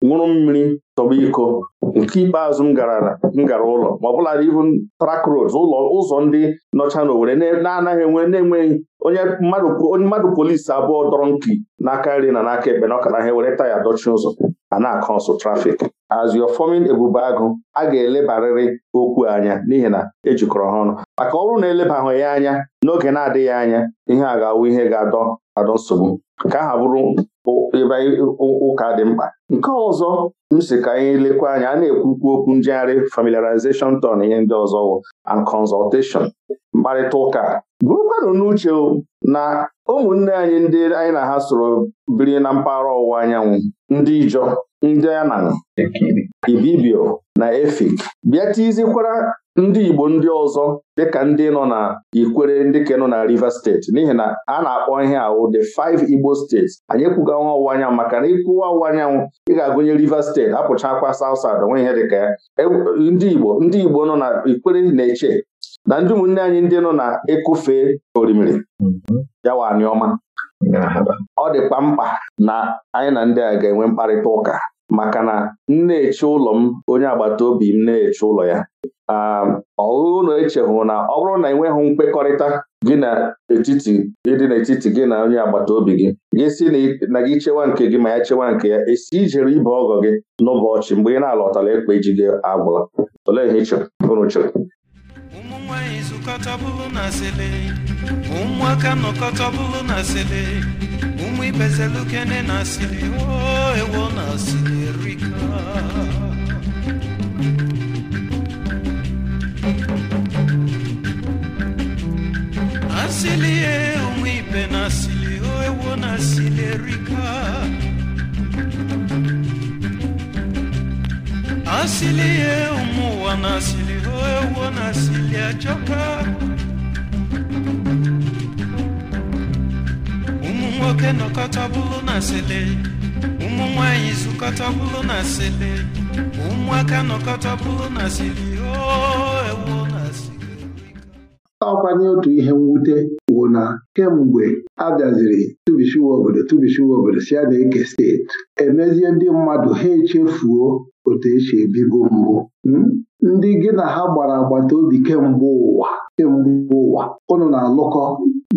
ṅụrụ mmiri tọba iko nke ikpeazụ m gara m gara ụlọ ma ọ bụla even track ụlọ ụzọ ndị nọcha n'Owerri na-anaghị enwe na-enweghị onye mmadụ polisi abụọ dọrọ nki n'aka nri na n'aka ebe na ọkara ha were taya dọchi ụzọ a na-akọ nsụ trafik as you're forming ebube agụ a ga-elebarịrị okwu anya n'ihi na ejikọrọ ha ọnụ maka ọ na elebaghị ya anya n'oge na-adịghị anya ihe a ga-awụ ihe ga-adọ adọ nsogbu ka aha bụrụ ebe ụka dị mkpa nke ọzọ m si ka anyị lekwa anya a na-ekwukwu okwu njegharị familiarization ton ihe ndị ọzọ and consultation mkparịta ụka bụrụkwanụ n'uche na ụmụnne anyị ndị anyị na ha soro biri na mpaghara ọwụwa anyanwụ ndị Ijọ ndị Anan Ibibio na Efik bịa tizikwara ndị Igbo ndị ọzọ dịka ndị nọ na Ikwere ndị ka nọ na Rivers steeti n'ihi na a na-akpọ ihe ahụ the five Igbo steeti anyị ekwuga nwa ọwụwa anyanwụ maka na ịkwụwa ọwụwa anyanwụ ị ga-agụnye Rivers steeti apụchakwa South South onwe ihe dịka ya e, ndị Igbo ndị Igbo nọ na Ikwere na-eche na ndị ụmụnne anyị ndị nọ na ịkụfe orimiri mm-hmm. ya wa anyọma ọ dịkwa mkpa na anyị na ndị a ga-enwe mkparịta ụka maka na m na-eche ụlọ m onye agbata obi m na-eche ụlọ ya um, ọhụụ na echehụ na ọ bụrụ na enweghị nkwekọrịta gị na etiti ịdị n'etiti gị na onye agbata obi gị gị si na gị chewa nke gị ma ya chewa nke ya esi ijere ibe ọgọ gị n'ụbọchị mgbe ị na-alọtara ekpe ji gị agbụrụ olee ihe ị chọrọ chọrọ ụmụnwaanyị bụrụ na ụmụaka nọkọta bụrụ na ibezelukene nasili o ewo nasili erika asili ye onwe ibe na asili o ewo na asili erika asili ye ụmụ na asili o ewo na asili ajọka nwoke nọkọta bụlụ na sele ụmụ zụkọta bụlụ na sele ụmụaka nọkọta bụlụ na sele na sele ọkwanye otu ihe mwute wụ na kemgbe a bịaziri tụbishiwa obodo tụbishiwa obodo si a eke steeti emezie ndị mmadụ ha echefuo otu esi ebigo mbụ hmm? ndị gị na ha gbara agbata obi kemgbe ụwa kemgbe ụwa ụnụ na-alụkọ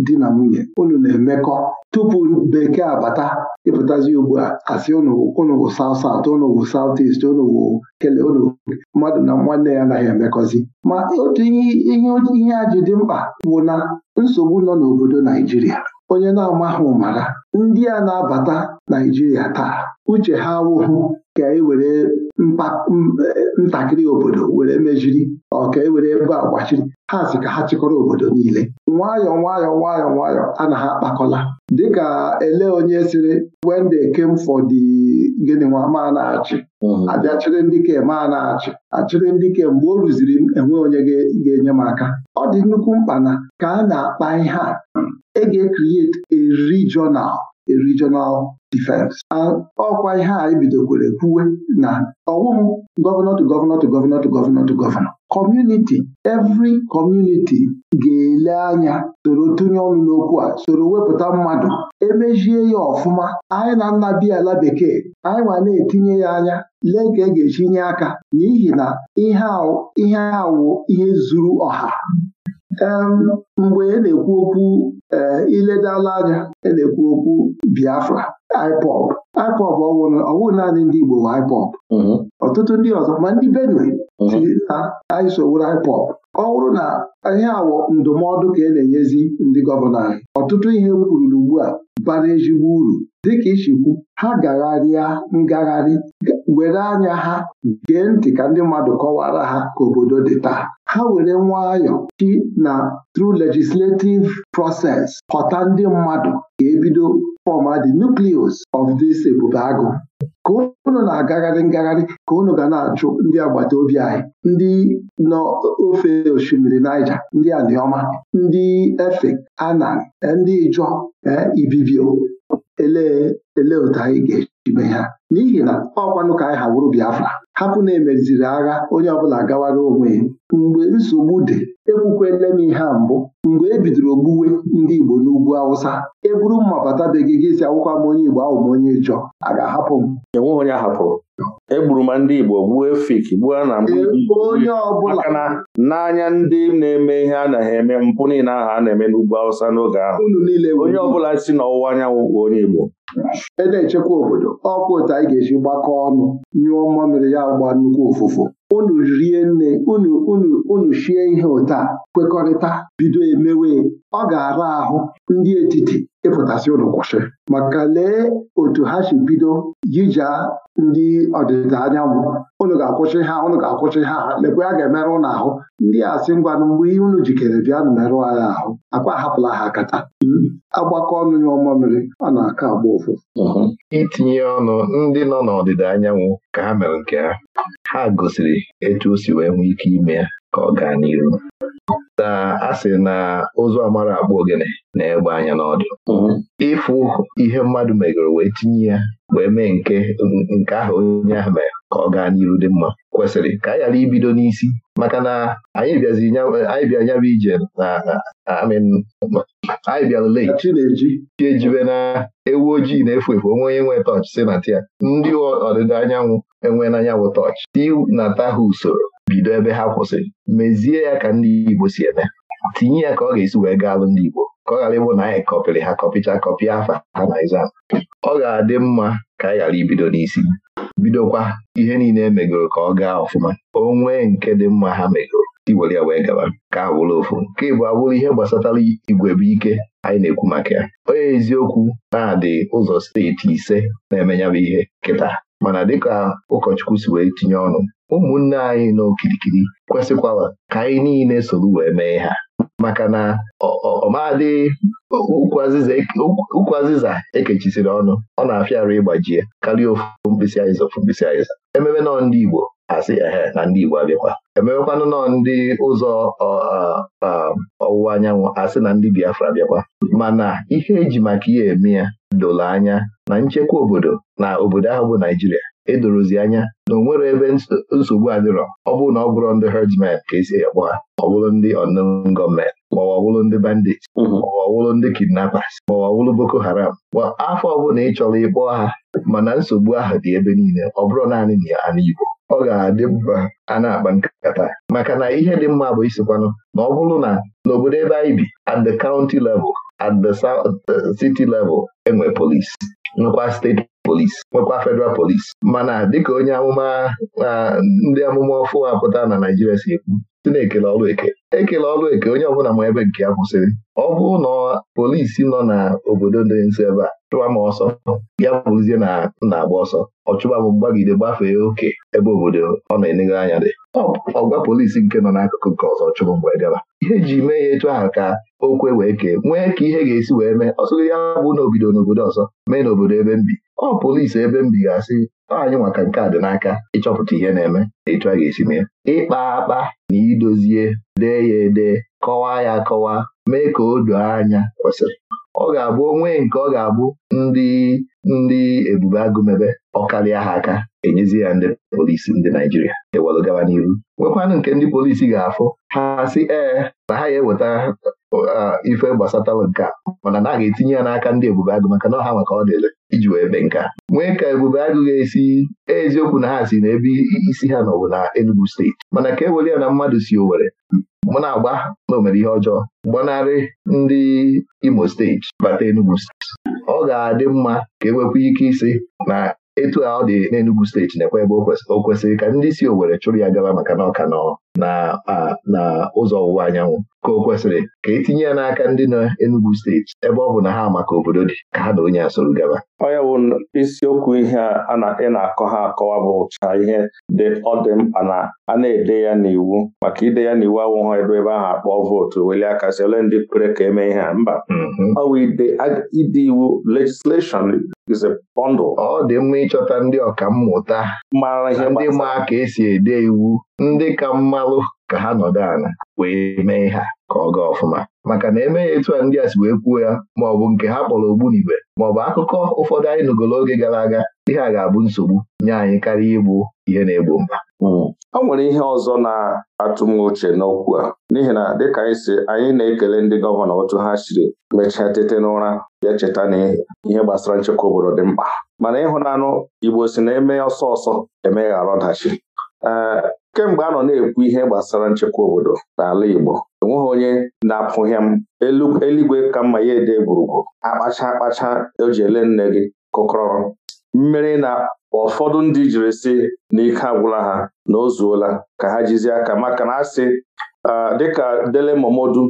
di na nwunye unu na-emekọ tupu bekee abata ịpụtazi ugbu a asị unu wụ saut saut unu wụ saut ist unu kele unu mmadụ na nwanne ya anaghị emekọzi ma otu ihe ihe ji dị mkpa bụ na nsogbu nọ n'obodo Naijiria onye na-amahụ mara ndị a na-abata Naijiria taa uche ha awụhụ ka e were ntakịrị obodo were mejiri ọ ka e were ebe agbachiri ha si ka ha chịkọrọ obodo niile nwayọọ nwayọọ nwayọọ nwayọọ a na ha akpakọla dịka ele onye sịrị when they came for the gịnị nwa ma na-achị mm-hmm. abịa chịrị ndị ke ma na-achị achịrị ndị ke mgbe o rụziri m enwe onye ga-enye m aka ọ dị nnukwu mkpa na ka a na-akpa ihe a ege kriet a regional regional defense ọkwa ihe a ebidokwere kwuwe na ọwụhụ gọvanọ to gọvanọ to gọvanọ gọvanọ to Community, every community ga-ele anya soro tụnye ọnụ n'okwu a soro wepụta mmadụ emezie ya ọfụma anyị na nna biala bekee anyị ma na-etinye ya anya lee ka e ga-echi nye aka n'ihi na ihe awụ ihe zuru ọha mgbe e na-ekwu okwu e, iledala anya e na-ekwu okwu Biafra IPOB IPOB ọwụ naanị ndị Igbo bụ IPOB mm-hmm. ọtụtụ ndị ọzọ ma ndị Benue mm-hmm. si na anyị ọ bụrụ na ihe awọ ndụmọdụ ka e na-enyezi ndị gọvanọ anyị ọtụtụ ihe kwururu ugbu a bara ezigbo uru dịka ichikwu ha gagharịa ngagharị were anya ha gee ntị ka ndị mmadụ kọwara ha ka obodo dị taa ha were nwayọ chi na through legislative process họta ndị mmadụ ka ebido fọma the nucleus of this ebube agụ ka unu na-agagharị ngagharị ka unu ga na-achụ ndị agbata obi anyị ndị nọ ofe osimiri Naija ndị Anioma ndị Efe Anan ndị Ijọ eh, Ibibio ele ele otu anyị ga ibe ha n'ihi na ọkwanụ ka anyị ha Biafra hapụ na emeziri agha onye ọbụla gawara onwe ya mgbe nsogbu dị ekwukwele m ihe mbụ mgbe e bidoro ogbuwe ndị Igbo n'ugwu Awụsa eburu buru mma bata be gị si akwụkwọ m onye Igbo ahụ m onye ịchọ a ga-ahapụ m enweghị onye ahapụrụ egburu m ndị Igbo gbuo Efik gbuo na e onye ọbụla n'anya ndị na-eme ihe a na-eme mpụ niile aha a na-eme n'ugwu Awụsa n'oge ahụ onye ọbụla si n'ọwụwa anyanwụ bụ onye Igbo e na-echekwa obodo ọkwa ụtọ anyị ga-eji gbakọ ọnụ nyụọ mmamịrị ya gba nnukwu ụfụfụ unu rie nne unu unu unu shie ihe ụtọ a kwekọrịta bido emewe ọ ga-ara ahụ ndị etiti ịfụtasị ụlọ kwụsị maka lee otu ha si bido jija ndị ọdịda anyanwụ ụnụ ga-akwụsị ha ụnụ ga-akwụsị ha lekwe a ga-emerụ ụnụ ahụ ndị a sị mgbe ihe unu jikere bịa nụ merụọ anyị ahụ akwa ahapụla ha kata agbakọ ọnụ ya ọma mmiri ọ na-aka agba ụfụ mhm. itinye ọnụ ndị nọ n'ọdịda anyanwụ ka ha mere nke ha ha gosiri etu o si wee nwee ike ime ya ka ọ gaa n'iru na a sị na ozu amara akpọ ogene na-egbe anya n'ọdụ mhm. ịfụ ihe mmadụ megoro wee tinye ya wee mee nke nke ahụ onye ahụ mere ka ọ gaa n'iru dị mma kwesịrị ka anyị ghara ibido n'isi maka na anyị bịa nyaba ije na anyị bịara late chi ejibe na ewu ojii na-efu efu onwe onye nwee tọchị si na tia ndị ọdịda anyanwụ enwe n'anyanwụ tọchị ti ata ha usoro bido ebe ha kwụsịrị mezie ya ka ndị Igbo si eme tinye ya ka ọ ga-esi wee gaa alụ ndị Igbo ka ọ ghara ịbụ na anyị kọpịrị ha kọpịcha kọpịa afa ha na exam ọ ga-adị mma ka anyị ghara ibido n'isi bidokwa ihe niile emegoro ka ọ gaa ọfụma o nwee nke dị mma ha megoro iwere ya wee gaba ka a bụrụ ofu nke ịbụ abụrụ ihe gbasatara igwe bụ ike anyị na-ekwu maka ya onye eziokwu na-adị ụzọ steeti ise na emenyabụ ihe kịta mana dịka ụkọchukwu si wee tinye ọnụ ụmụnne anyị n'okirikiri kwesịkwala ka anyị niile soro wee mee ha maka na ọmadị ụkwụ azịza ekechisiri e ọnụ ọ na afịarị ịgbajie karịa ofu mkpịsị ofu mkpịsị azịza ememe nọ ndị Igbo asị ehe na ndị Igbo abịakwa emewekwanụ nọ ndị ụzọ ọwụwa anyanwụ asị na ndị Biafra abịakwa mana ihe eji maka ya eme ya doro anya na nchekwa obodo na obodo ahụ bụ Naijiria edorozi anya na onwere ebe nsogbu adịrọ ọ bụrụ na ọ bụrụ ndị herdsmen ka esi akpọ ha ọ bụrụ ndị unknown gọọmenti maọbụ ọwụlụ ndị bandit mhm. maọbụ ọwụlụ ndị kidnappers maọbụ ọwụlụ Boko Haram ma afọ ọbụla ị chọrọ ịkpọ ha mana nsogbu ahụ dị ebe niile ọ bụrụ naanị na ya ana Igbo ọ ga-adị mba a na-akpa nkata maka na ihe dị mma bụ isikwanụ na ọ bụrụ na n'obodo ebe anyị bi at the county level at the uh, city level enwe polis nwekwa steeti polis nwekwa federal polis mana dịka onye amụma ndị amụma ọfụ apụta na Naijiria si ekwu si na-ekele ọlụ eke ekele ọlụ eke onye ọbụla ma ebe nke ya kwụsịrị ọ bụrụ na polisi nọ n'obodo dị nso ebe a chụwa m ọsọ ya bụzie na na-agba ọsọ ọ chụba m mgbagide gbafee oke ebe obodo ọ na-enegho anya dị ọgwa polisi nke nọ n'akụkụ nke ọzọ chụrụ mgbe gaba ihe e ji mee ya etu ahụ ka okwe wee kee nwee ka ihe ga-esi wee mee ọsọ ya bụ na obido n'obodo ọzọ mee n'obodo ebe m bi ọ polisi ebe m bi ga anyị maka nke a dị n'aka ịchọpụta ihe na-eme na ịtụ a ga-esi mee ịkpa akpa na idozie dee ya ede kọwaa ya akọwa mee ka o doo anya kwesịrị ọ ga-abụ onwe nke ọ ga-abụ ndị ndị ebube agụmebe ọkarịa ha aka enyezi ya ndị polisi ndị Naijiria ewelụ gaba n'iru nwekwanụ nke ndị polisi ga-afụ ha sị ee na ha ya eweta Uh, ife gbasatala nke mana na aga etinye ya n'aka ndị ebube agụ maka na ọha maka ọ dịrị iji wee be nka nwee ka ebube agụ ga-esi eziokwu na ha si na ebe isi ha nọbụ na Enugu steeti mana ka e were ya na mmadụ si owere, mụ na-agba na o mere ihe ọjọọ gbanarị ndị Imo steeti bata Enugu steeti ọ ga-adị mma ka enwekwa ike isi na etu a ọ dị n'Enugu steeti na-ekwe ebe o kwesịrị ka ndị si owere chụrụ ya gaba maka na ọka nọ uh, na ụzọ ọwụwa anyanwụ ka o kwesịrị ka etinye ya n'aka ndị nọ Enugu steeti ebe ọ bụ na ha maka obodo dị ka ha na onye a gaba onye bụ isiokwu ihe a ị na-akọ ha akọwa bụ ụcha ihe dị ọ dị mkpa na a na-ede ya n'iwu maka ide ya n'iwu awụghọ ebe ebe ahụ akpọọ vootu weli aka si ole ndị kwere ka eme ihe a mba mm-hmm. ọ bụ ide iwu legislation ọ dị mma ịchọta ndị ọkammụta ndị ma ka esi ede iwu ndị ka mmalụ ka ha nọdụ ala wee mee ha ka ọ gaa ọfụma maka na eme ya etu a ndị a si wee kwuo ya bụ nke ha kpọrọ ogbunigwe maọbụ akụkọ ụfọdụ anyị nụgolo oge gara aga ihe a ga-abụ nsogbu nye anyị karịa ịbụ ihe na-egbo mba. ọ hmm. nwere ihe ọzọ na-atụ m uche n'okwu a n'ihi na dịka anyị si anyị na-ekele ndị gọvanọ otu ha chiri mechaa tete n'ụra ya cheta na ihe gbasara nchekwa obodo dị mkpa mana ịhụnanụ Igbo si na eme ọsọ ọsọ emegharọdachi kemgbe anọ na-ekwu ihe gbasara nchekwa obodo n'ala Igbo enweghị onye na-apụghị m eluigwe ka mma ya ede egwurugwu akpacha akpacha o ji ele nne gị kụkọrọ mmeri na ụfọdụ ndị jiri si n'ike agwụla ha na o ka ha jizi aka maka na asị ah, dịka Dele Momodu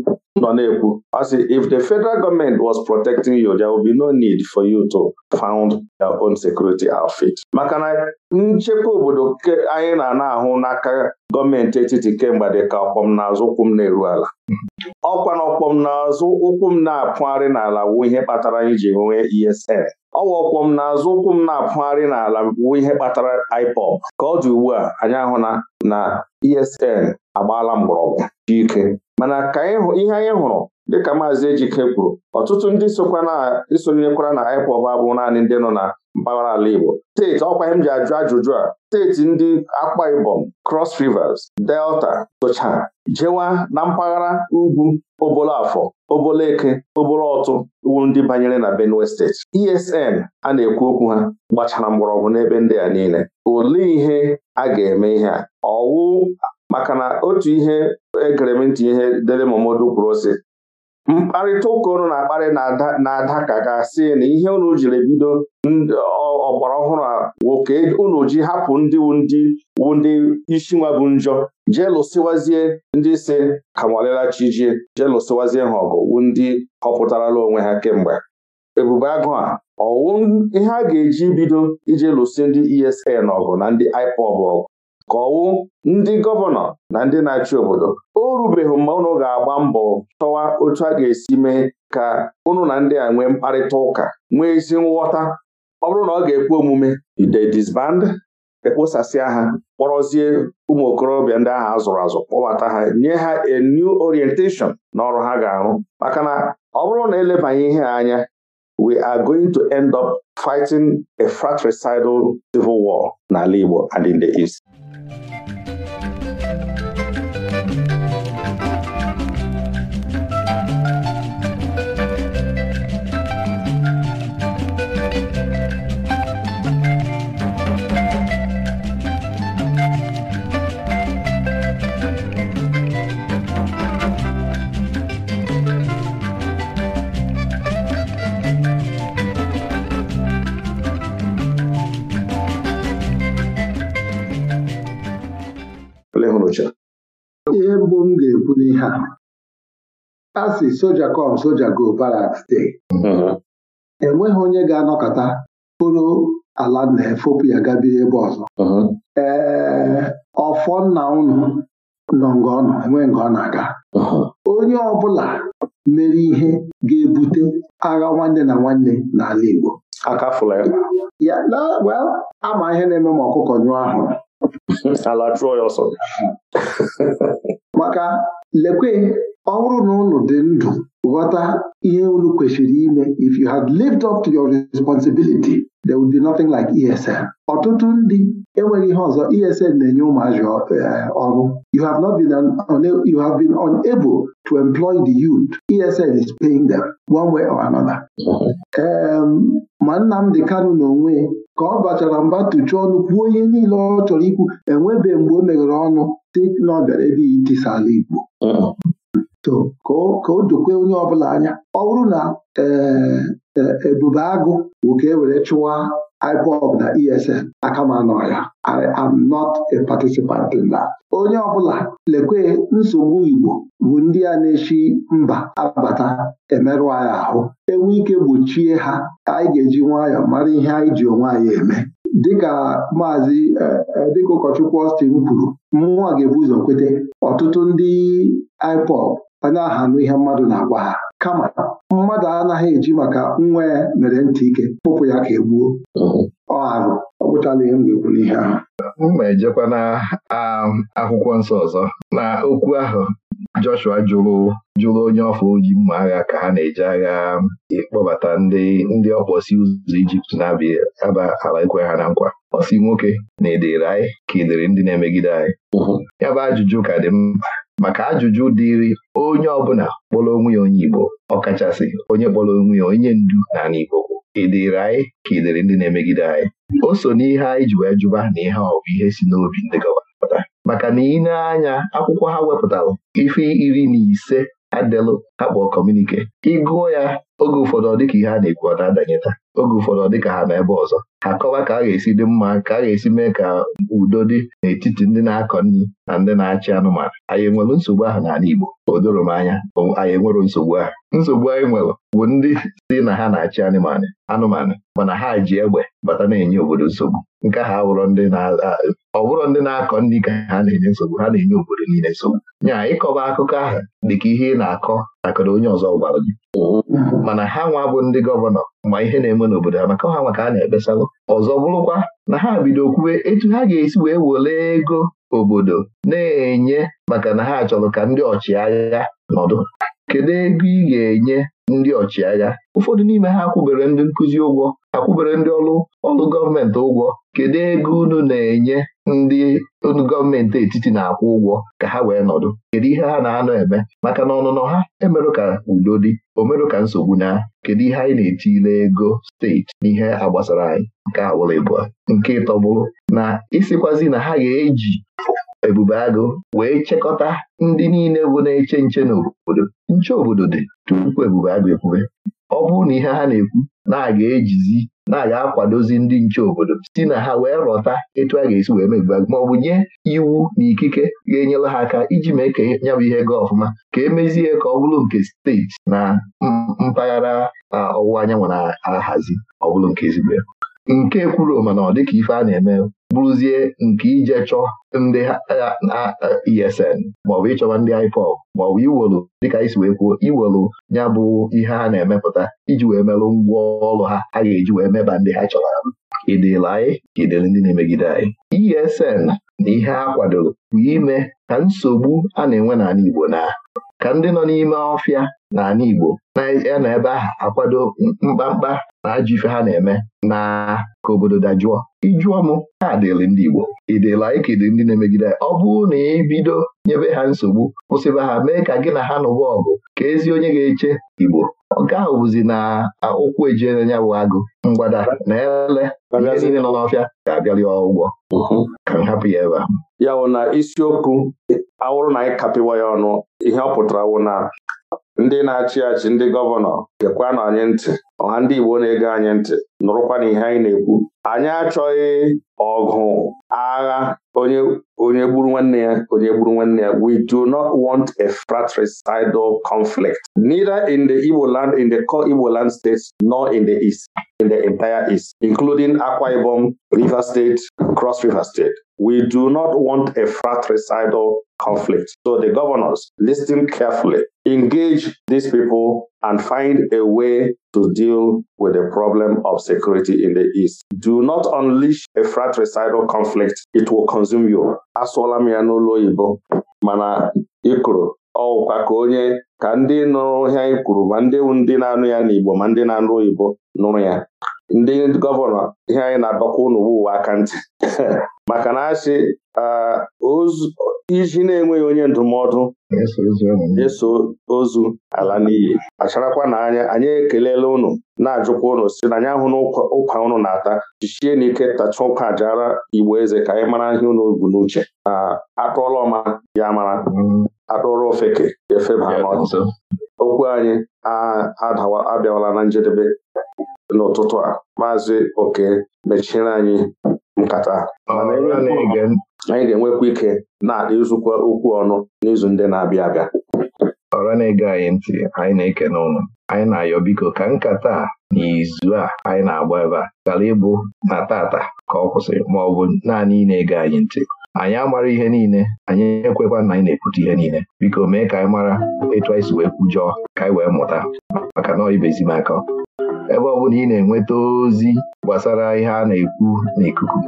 nọ na-ekwu ọ sị if the federal government was protecting you there would be no need for you to found your own security outfit. maka na nchekwa obodo anyị na ahụ n'aka gọọmenti etiti kemgbe dị ka ọkpọm n'azụ ụkwụ m na-eru ala ọkwa na ọkpọm n'azụ ụkwụ m na-apụgharị n'ala wu ihe kpatara anyị ji nwee ESN ọwa ọkpọm n'azụ ụkwụ m na-apụgharị n'ala wu ihe kpatara ipop ka ọ dị ugbu a anyị ahụ na ESN agbaala mgbọrọgwụ ike mana ka ihe anyị hụrụ dịka maazị Ejike kwuru ọtụtụ ndị sonyekwara na IPOB abụghị naanị ndị nọ na mpaghara ala Igbo steeti ọkwa m ji ajụ ajụjụ a steeti ndị akpa Ibom Cross Rivers Delta socha jewa na mpaghara ugwu Obolafọ obolo Obolọtụ wu ndị banyere na Benue steeti ESN a na-ekwu okwu ha gbachara mgbọrọgwụ n'ebe ndị a niile olee ihe a ga-eme ihe a ọwụ maka na otu ihe egeremntị ihe dere Momodu kwuru si mkparịta ụka unu na-akparị na-ada ka ga-asị na ihe unu jiri bido ọgbara ọhụrụ a nwoke unu ji hapụ ndị ndị wu ndị isi nwa bụ njọ jee lụsịwazie ndị si kamọlịla chijie jee lụsịwazie ha ọgụ wu ndị họpụtarala onwe ha kemgbe ebube agụ a ọwụ ihe a ga-eji bido ije lụsị ndị ESN ọgụ na ndị IPOB ọgụ ka ndị gọvanọ na ndị na-achị obodo o rubeghị mma unu ga-agba mbọ chọwa otu a ga-esi mee ka unu na ndị a nwee mkparịta ụka nwee ezi nghọta ọ bụrụ na ọ ga-ekwe omume ide disband ekposasịa ha kpọrọzie ụmụ okorobịa ndị ahụ azụrụ azụ kpọbata ha nye ha a new orientation na ọrụ ha ga-arụ maka na ọ bụrụ na elebanye ihe anya we are going to end up fighting a fratricidal civil war n'ala Igbo and in the East ole hụrụcha ihe mbụ m ga-ekwu n'ihe a a si soja kom soja go baraks dey mm-hmm. enweghị onye ga-anọkọta bụrụ ala na efopu ya gabiri ebe ọzọ mm-hmm. ee ọfọ nna nọ nga ọ nọ enweghị nga ọ na-aga mm-hmm. onye ọbụla mere ihe ga-ebute agha nwanne na nwanne n'ala Igbo ya ama ihe na-eme ma ọkụkọ nyụọ ahụrụ ala chụọ ya ọsọ maka lekwe ọ bụrụ na dị ndụ ghọta ihe unu kwesịrị ime if you had lived up to your responsibility there would be nothing like ESN ọtụtụ ndị enweghị ihe ọzọ ESN na-enye ụmụazị eh, ọrụ you have not been you have been unable to employ the youth ESN is paying them one way or another. ma Nnamdi Kanu n'onwe ka ọ bachara mba tụchuo ọnụ kwuo ihe niile ọ chọrọ ikwu enwebeghị mgbe o meghere ọnụ dị na ọ bịara ebe itisa ala Igbo ka o dokwe onye ọbụla anya ọ bụrụ na ee eh, eh, agụ bụ ka e were chụwa IPOB na ESN aka ma nọ ya I am not a participant in that. onye ọbụla lekwe nsogbu Igbo bụ ndị a na-echi mba abata emerụ anyị ahụ enwe ike gbochie ha anyị ga-eji nwayọọ mara ihe anyị ji onwe anyị eme dịka maazị eh, eh, dịka ụkọchukwu ọstin kwuru mmụọ ga-ebu ụzọ kwete ọtụtụ ndị IPOB anya na-ahanụ ihe mmadụ na-agwa ha kama mmadụ anaghị eji maka nwa ya mere ntị ike pụpụ ya ka egbuo ọ arụ ọ gwụchala ihe m ga-ekwu n'ihe ahụ m ma ejekwa na um, akwụkwọ nsọ ọzọ na okwu ahụ Joshua jụrụ jụrụ onye ọfọ oji mma agha ka ha na-eji agha um, ịkpọbata ndị ndị ọkpọsi ụzọ Ijipt na-abịa aba ala ekwe ha na nkwa ọ nwoke na edere anyị ka edere ndị na-emegide anyị ya bụ ajụjụ ka dị mkpa maka ajụjụ dịịrị onye ọbụla kpọrọ onwe ya onye Igbo ọkachasị onye kpọrọ onwe ya onye ndu n'ala Igbo kwụ ị anyị ka ị dịrị ndị na-emegide anyị o so n'ihe anyị ji wee jụba na ihe ọ bụ ihe si n'obi ndị gọvanọ maka na ị anya akwụkwọ ha wepụtara ife iri na ise ha kpọọ kọmunike ịgụọ ya oge ụfọdụ ọ dịka ihe a na-ekwu ọ na-adanyeta oge ụfọdụ ọ dịka ha na ebe ọzọ akọwa ka a ga-esi dị mma ka a ga-esi mee ka udo dị n'etiti ndị na-akọ nri na ndị na-achị anụmanụ anyị enwere nsogbu ahụ n'ala Igbo o doro m anya anyị enwere nsogbu ahụ nsogbu anyị nwere bụ ndị si na ha na-achị anụmanụ anụmanụ mana ha ji egbe bata na-enye obodo nsogbu nke ha wụrụ ndị ọ ndị na-akọ ndị ka ha na-enye nsogbu ha na-enye obodo niile nsogbu nya ịkọba akụkọ ahụ dịka ihe ị na-akọ akọrọ onye ọzọ gwara gị mm-hmm. mana ha nwa bụ ndị gọvanọ ma ihe na-eme n'obodo ha maka ha ka a na-ekpesalụ ọzọ bụrụkwa na ha bido kwuwe etu ha ga-esi wee were ego obodo na-enye maka na ha chọrọ ka ndị ọchịagha nọdụ kedu ego ị ga-enye ndị ọchịagha ụfọdụ n'ime ha akwụbere ndị nkụzi ụgwọ akwụbere ndị ọrụ ọrụ gọọmenti ụgwọ kedu ego unu na-enye ndị gọọmenti etiti na-akwụ ụgwọ ka ha wee nọdụ kedu ihe ha na-anọ eme maka na ọnụnọ ha emerụ ka udo dị o ka nsogbu na kedu ihe anyị na-etile ego steeti n'ihe agbasara anyị nke awụlịbụa nke ịtọ bụrụ na ịsịkwazi na ha ga-eji Ebube Agụ wee chekọta ndị niile bụ na-eche nche n'obodo nche obodo dị tupu Ebube Agụ ekwube ọ bụrụ na ihe ha na-ekwu na-aga ejizi na-aga akwadozi ndị nche obodo si na ha wee rọta etu a ga-esi wee ma ọ bụ nye iwu na ikike ga-enyere ha aka iji mee ka nya bụ ihe gaa ọfụma ka emezie ka ọ bụrụ nke steeti na mpaghara ọwụwa anyanwụ na-ahazi ọ bụrụ nke ezigbo ya nke kwuru mana ọ dịka ife a na-eme bụrụzie nke ije chọọ ndị na ESN maọbụ ịchọba ndị ọ maọbụ iwelu dịka isi wee kwuo iwelu ya bụ ihe ha na-emepụta iji wee merụ ngwa ọrụ ha a ga-eji wee meba ndị ha chọrọ ịdịla anyị ka ndị na-emegide anyị ESN na ihe a kwadoro bụ ime ka nsogbu a na-enwe n'ala Igbo na ka ndị nọ n'ime ọfịa n'ala Igbo na ebe ahụ akwado mkpamkpa na ajụ ife ha na-eme na ka obodo dajụọ ijụọ m ha dịrị ndị Igbo ịdịla ike dị ndị na-emegide ọ bụrụ na ị bido nyebe ha nsogbu kwụsịba ha mee ka gị na ha nụwa ọgụ ka ezi onye ga-eche Igbo nke ahụ bụzi na ụkwụ ejele bụ agụ mgbada na ele ihe niile nọ n'ọfịa ga-abịali ụgwọ ka m hapụ ya ebe a ya wụ na isiokwu awụrụ na anyị kapịwa ya ọnụ ihe ọ pụtara wụ na ndị na-achị achị ndị gọvanọ na anyị ntị ọha ndị Igbo na-ege anyị ntị nụrụkwa na ihe anyị na-ekwu anyị achọghị ọgụ agha onye gburu nwanne ya onye gburu nwanne ya we do not want a fratricidal conflict neither in the Igbo land in the core Igbo land states nor in the east in the entire east including Akwa Ibom River State Cross River State we do not want a fratricidal conflict so the governors listen carefully engage these people and find a way to deal with the problem of security in the East. Do not unleash a fratricidal conflict. It will consume you. Asụọla m ya n'ụlọ oyibo mana ịkụrụ ọkwa ka onye ka ndị nụrụ ya ma ndị ndị na-anụ ya n'Igbo ma ndị na-anụ oyibo nụrụ ya ndị gọvanọ ihe anyị na-adọkwa ụnụ ụwa aka ntị maka na asị iji na-enweghị onye ndụmọdụ eso ozu ala n'iyi acharakwa na anya anyị ekelela ụnụ na-ajụkwa ụnụ si na anyị ahụ n'ụkwa ụnụ na-ata jichie ike tacha ụka jara igbo eze ka anyị mara ihe ụnụ bu n'uche na atụọla ọma ya mara mm. atụọrọ ofeke efe n'ọzọ okwu anyị abịawala na njedebe n'ụtụtụ a maazị oke mechiri anyị nkata anyị ga-enwekwu ike na-adị okwu ọnụ n'izu ndị na-abịa abịa ọra na-ege anyị ntị anyị na eke n'ụlọ, anyị na-ayọ biko ka nkata n'izu a anyị na-agba ebe a gara ịbụ na tata ka ọ kwụsịrị ma ọ bụ naanị ị na-ege anyị ntị anyị amara ihe niile anyị ekwekwa na anyị na ekwute ihe niile biko mee ka anyị mara etu anyị si wee kwujọọ ka anyị wee mụta maka na ibezi aka ebe ọ bụla ị na-enweta ozi gbasara ihe a na-ekwu n'ikuku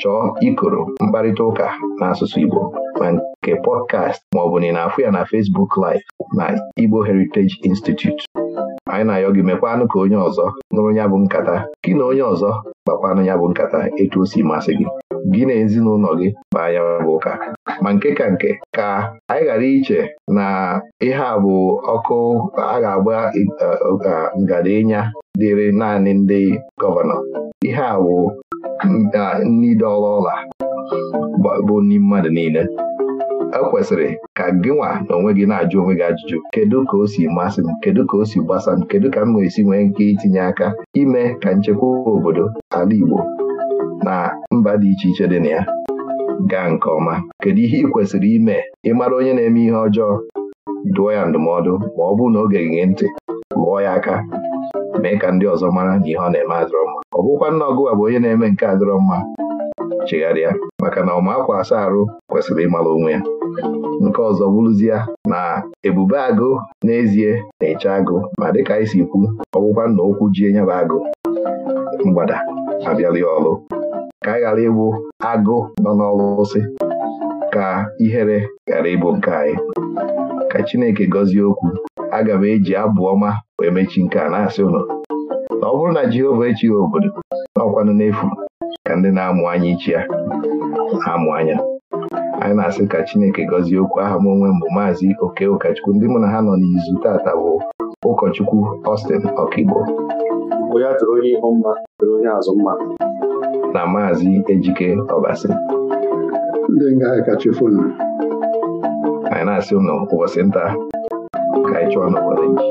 chọọ ikoro mkparịta ụka n'asụsụ Igbo ma nke pọdkast ma ọ bụ na ị na-afụ ya na Fesbuk Live na Igbo Heritage Institute anyị na-ayọ gị mekwanụ ka onye ọzọ nụrụ ya bụ nkata gị na onye ọzọ gbakwanụ ya bụ nkata etu o si masị gị gị na ezinụlọ gị baa ya bụ ụka ma nke ka nke ka anyị ghara iche na ihe a bụ ọkụ a ga-agba ngada ịnya dịrị naanị ndị gọvanọ ihe a bụ ndị ụla bụ ndị mmadụ niile ekwesịrị ka gịnwa na onwe gị na-ajụ onwe gị ajụjụ kedu ka o si masị m kedu ka o si gbasa m kedu ka m ga-esi nwee nke itinye aka ime ka nchekwa obodo ala Igbo na mba dị iche iche dị na ya gaa nke ọma kedu ihe ị kwesịrị ime ịmara onye na-eme ihe ọjọọ dụọ ya ndụmọdụ ma ọ bụrụ na oge gị ntị lụọ ya aka mee ka ndị ọzọ mara na ihe ọ na-eme adịrọ mma ọ bụkwa nna ọgụwa bụ onye na-eme nke adịrọ mma chegharịa maka na ọma akwa asa arụ kwesịrị ịmara onwe ya nke ọzọ bụrụzie na ebube agụ n'ezie na-eche agụ ma dịka anyị si kwu ọgwụkwa na okwu ji enyeba agụ mgbada abịalị ọrụ ka anyị ghara ịbụ agụ nọ n'ọlụsị ka ihere ghara ịbụ nke anyị ka Chineke gọzie okwu aga m eji abụ ọma wee mechi nke a na-asị ụlọ na ọ bụrụ na Jehova echighị obodo n'ọkwanụ n'efu ka ndị na-amụ anya ichi ya na-amụ anya anyị na-asị ka Chineke gọzie okwu aha m onwe mbụ maazị oke ụkọchukwu ndị mụ na ha nọ n'izu tata bụ ụkọchukwu Austin Ọkigbo na maazị Ejike Ọbasi anyị na-asị ụnụ ụbọchị nta ka anyị chụọ n'obodo iji.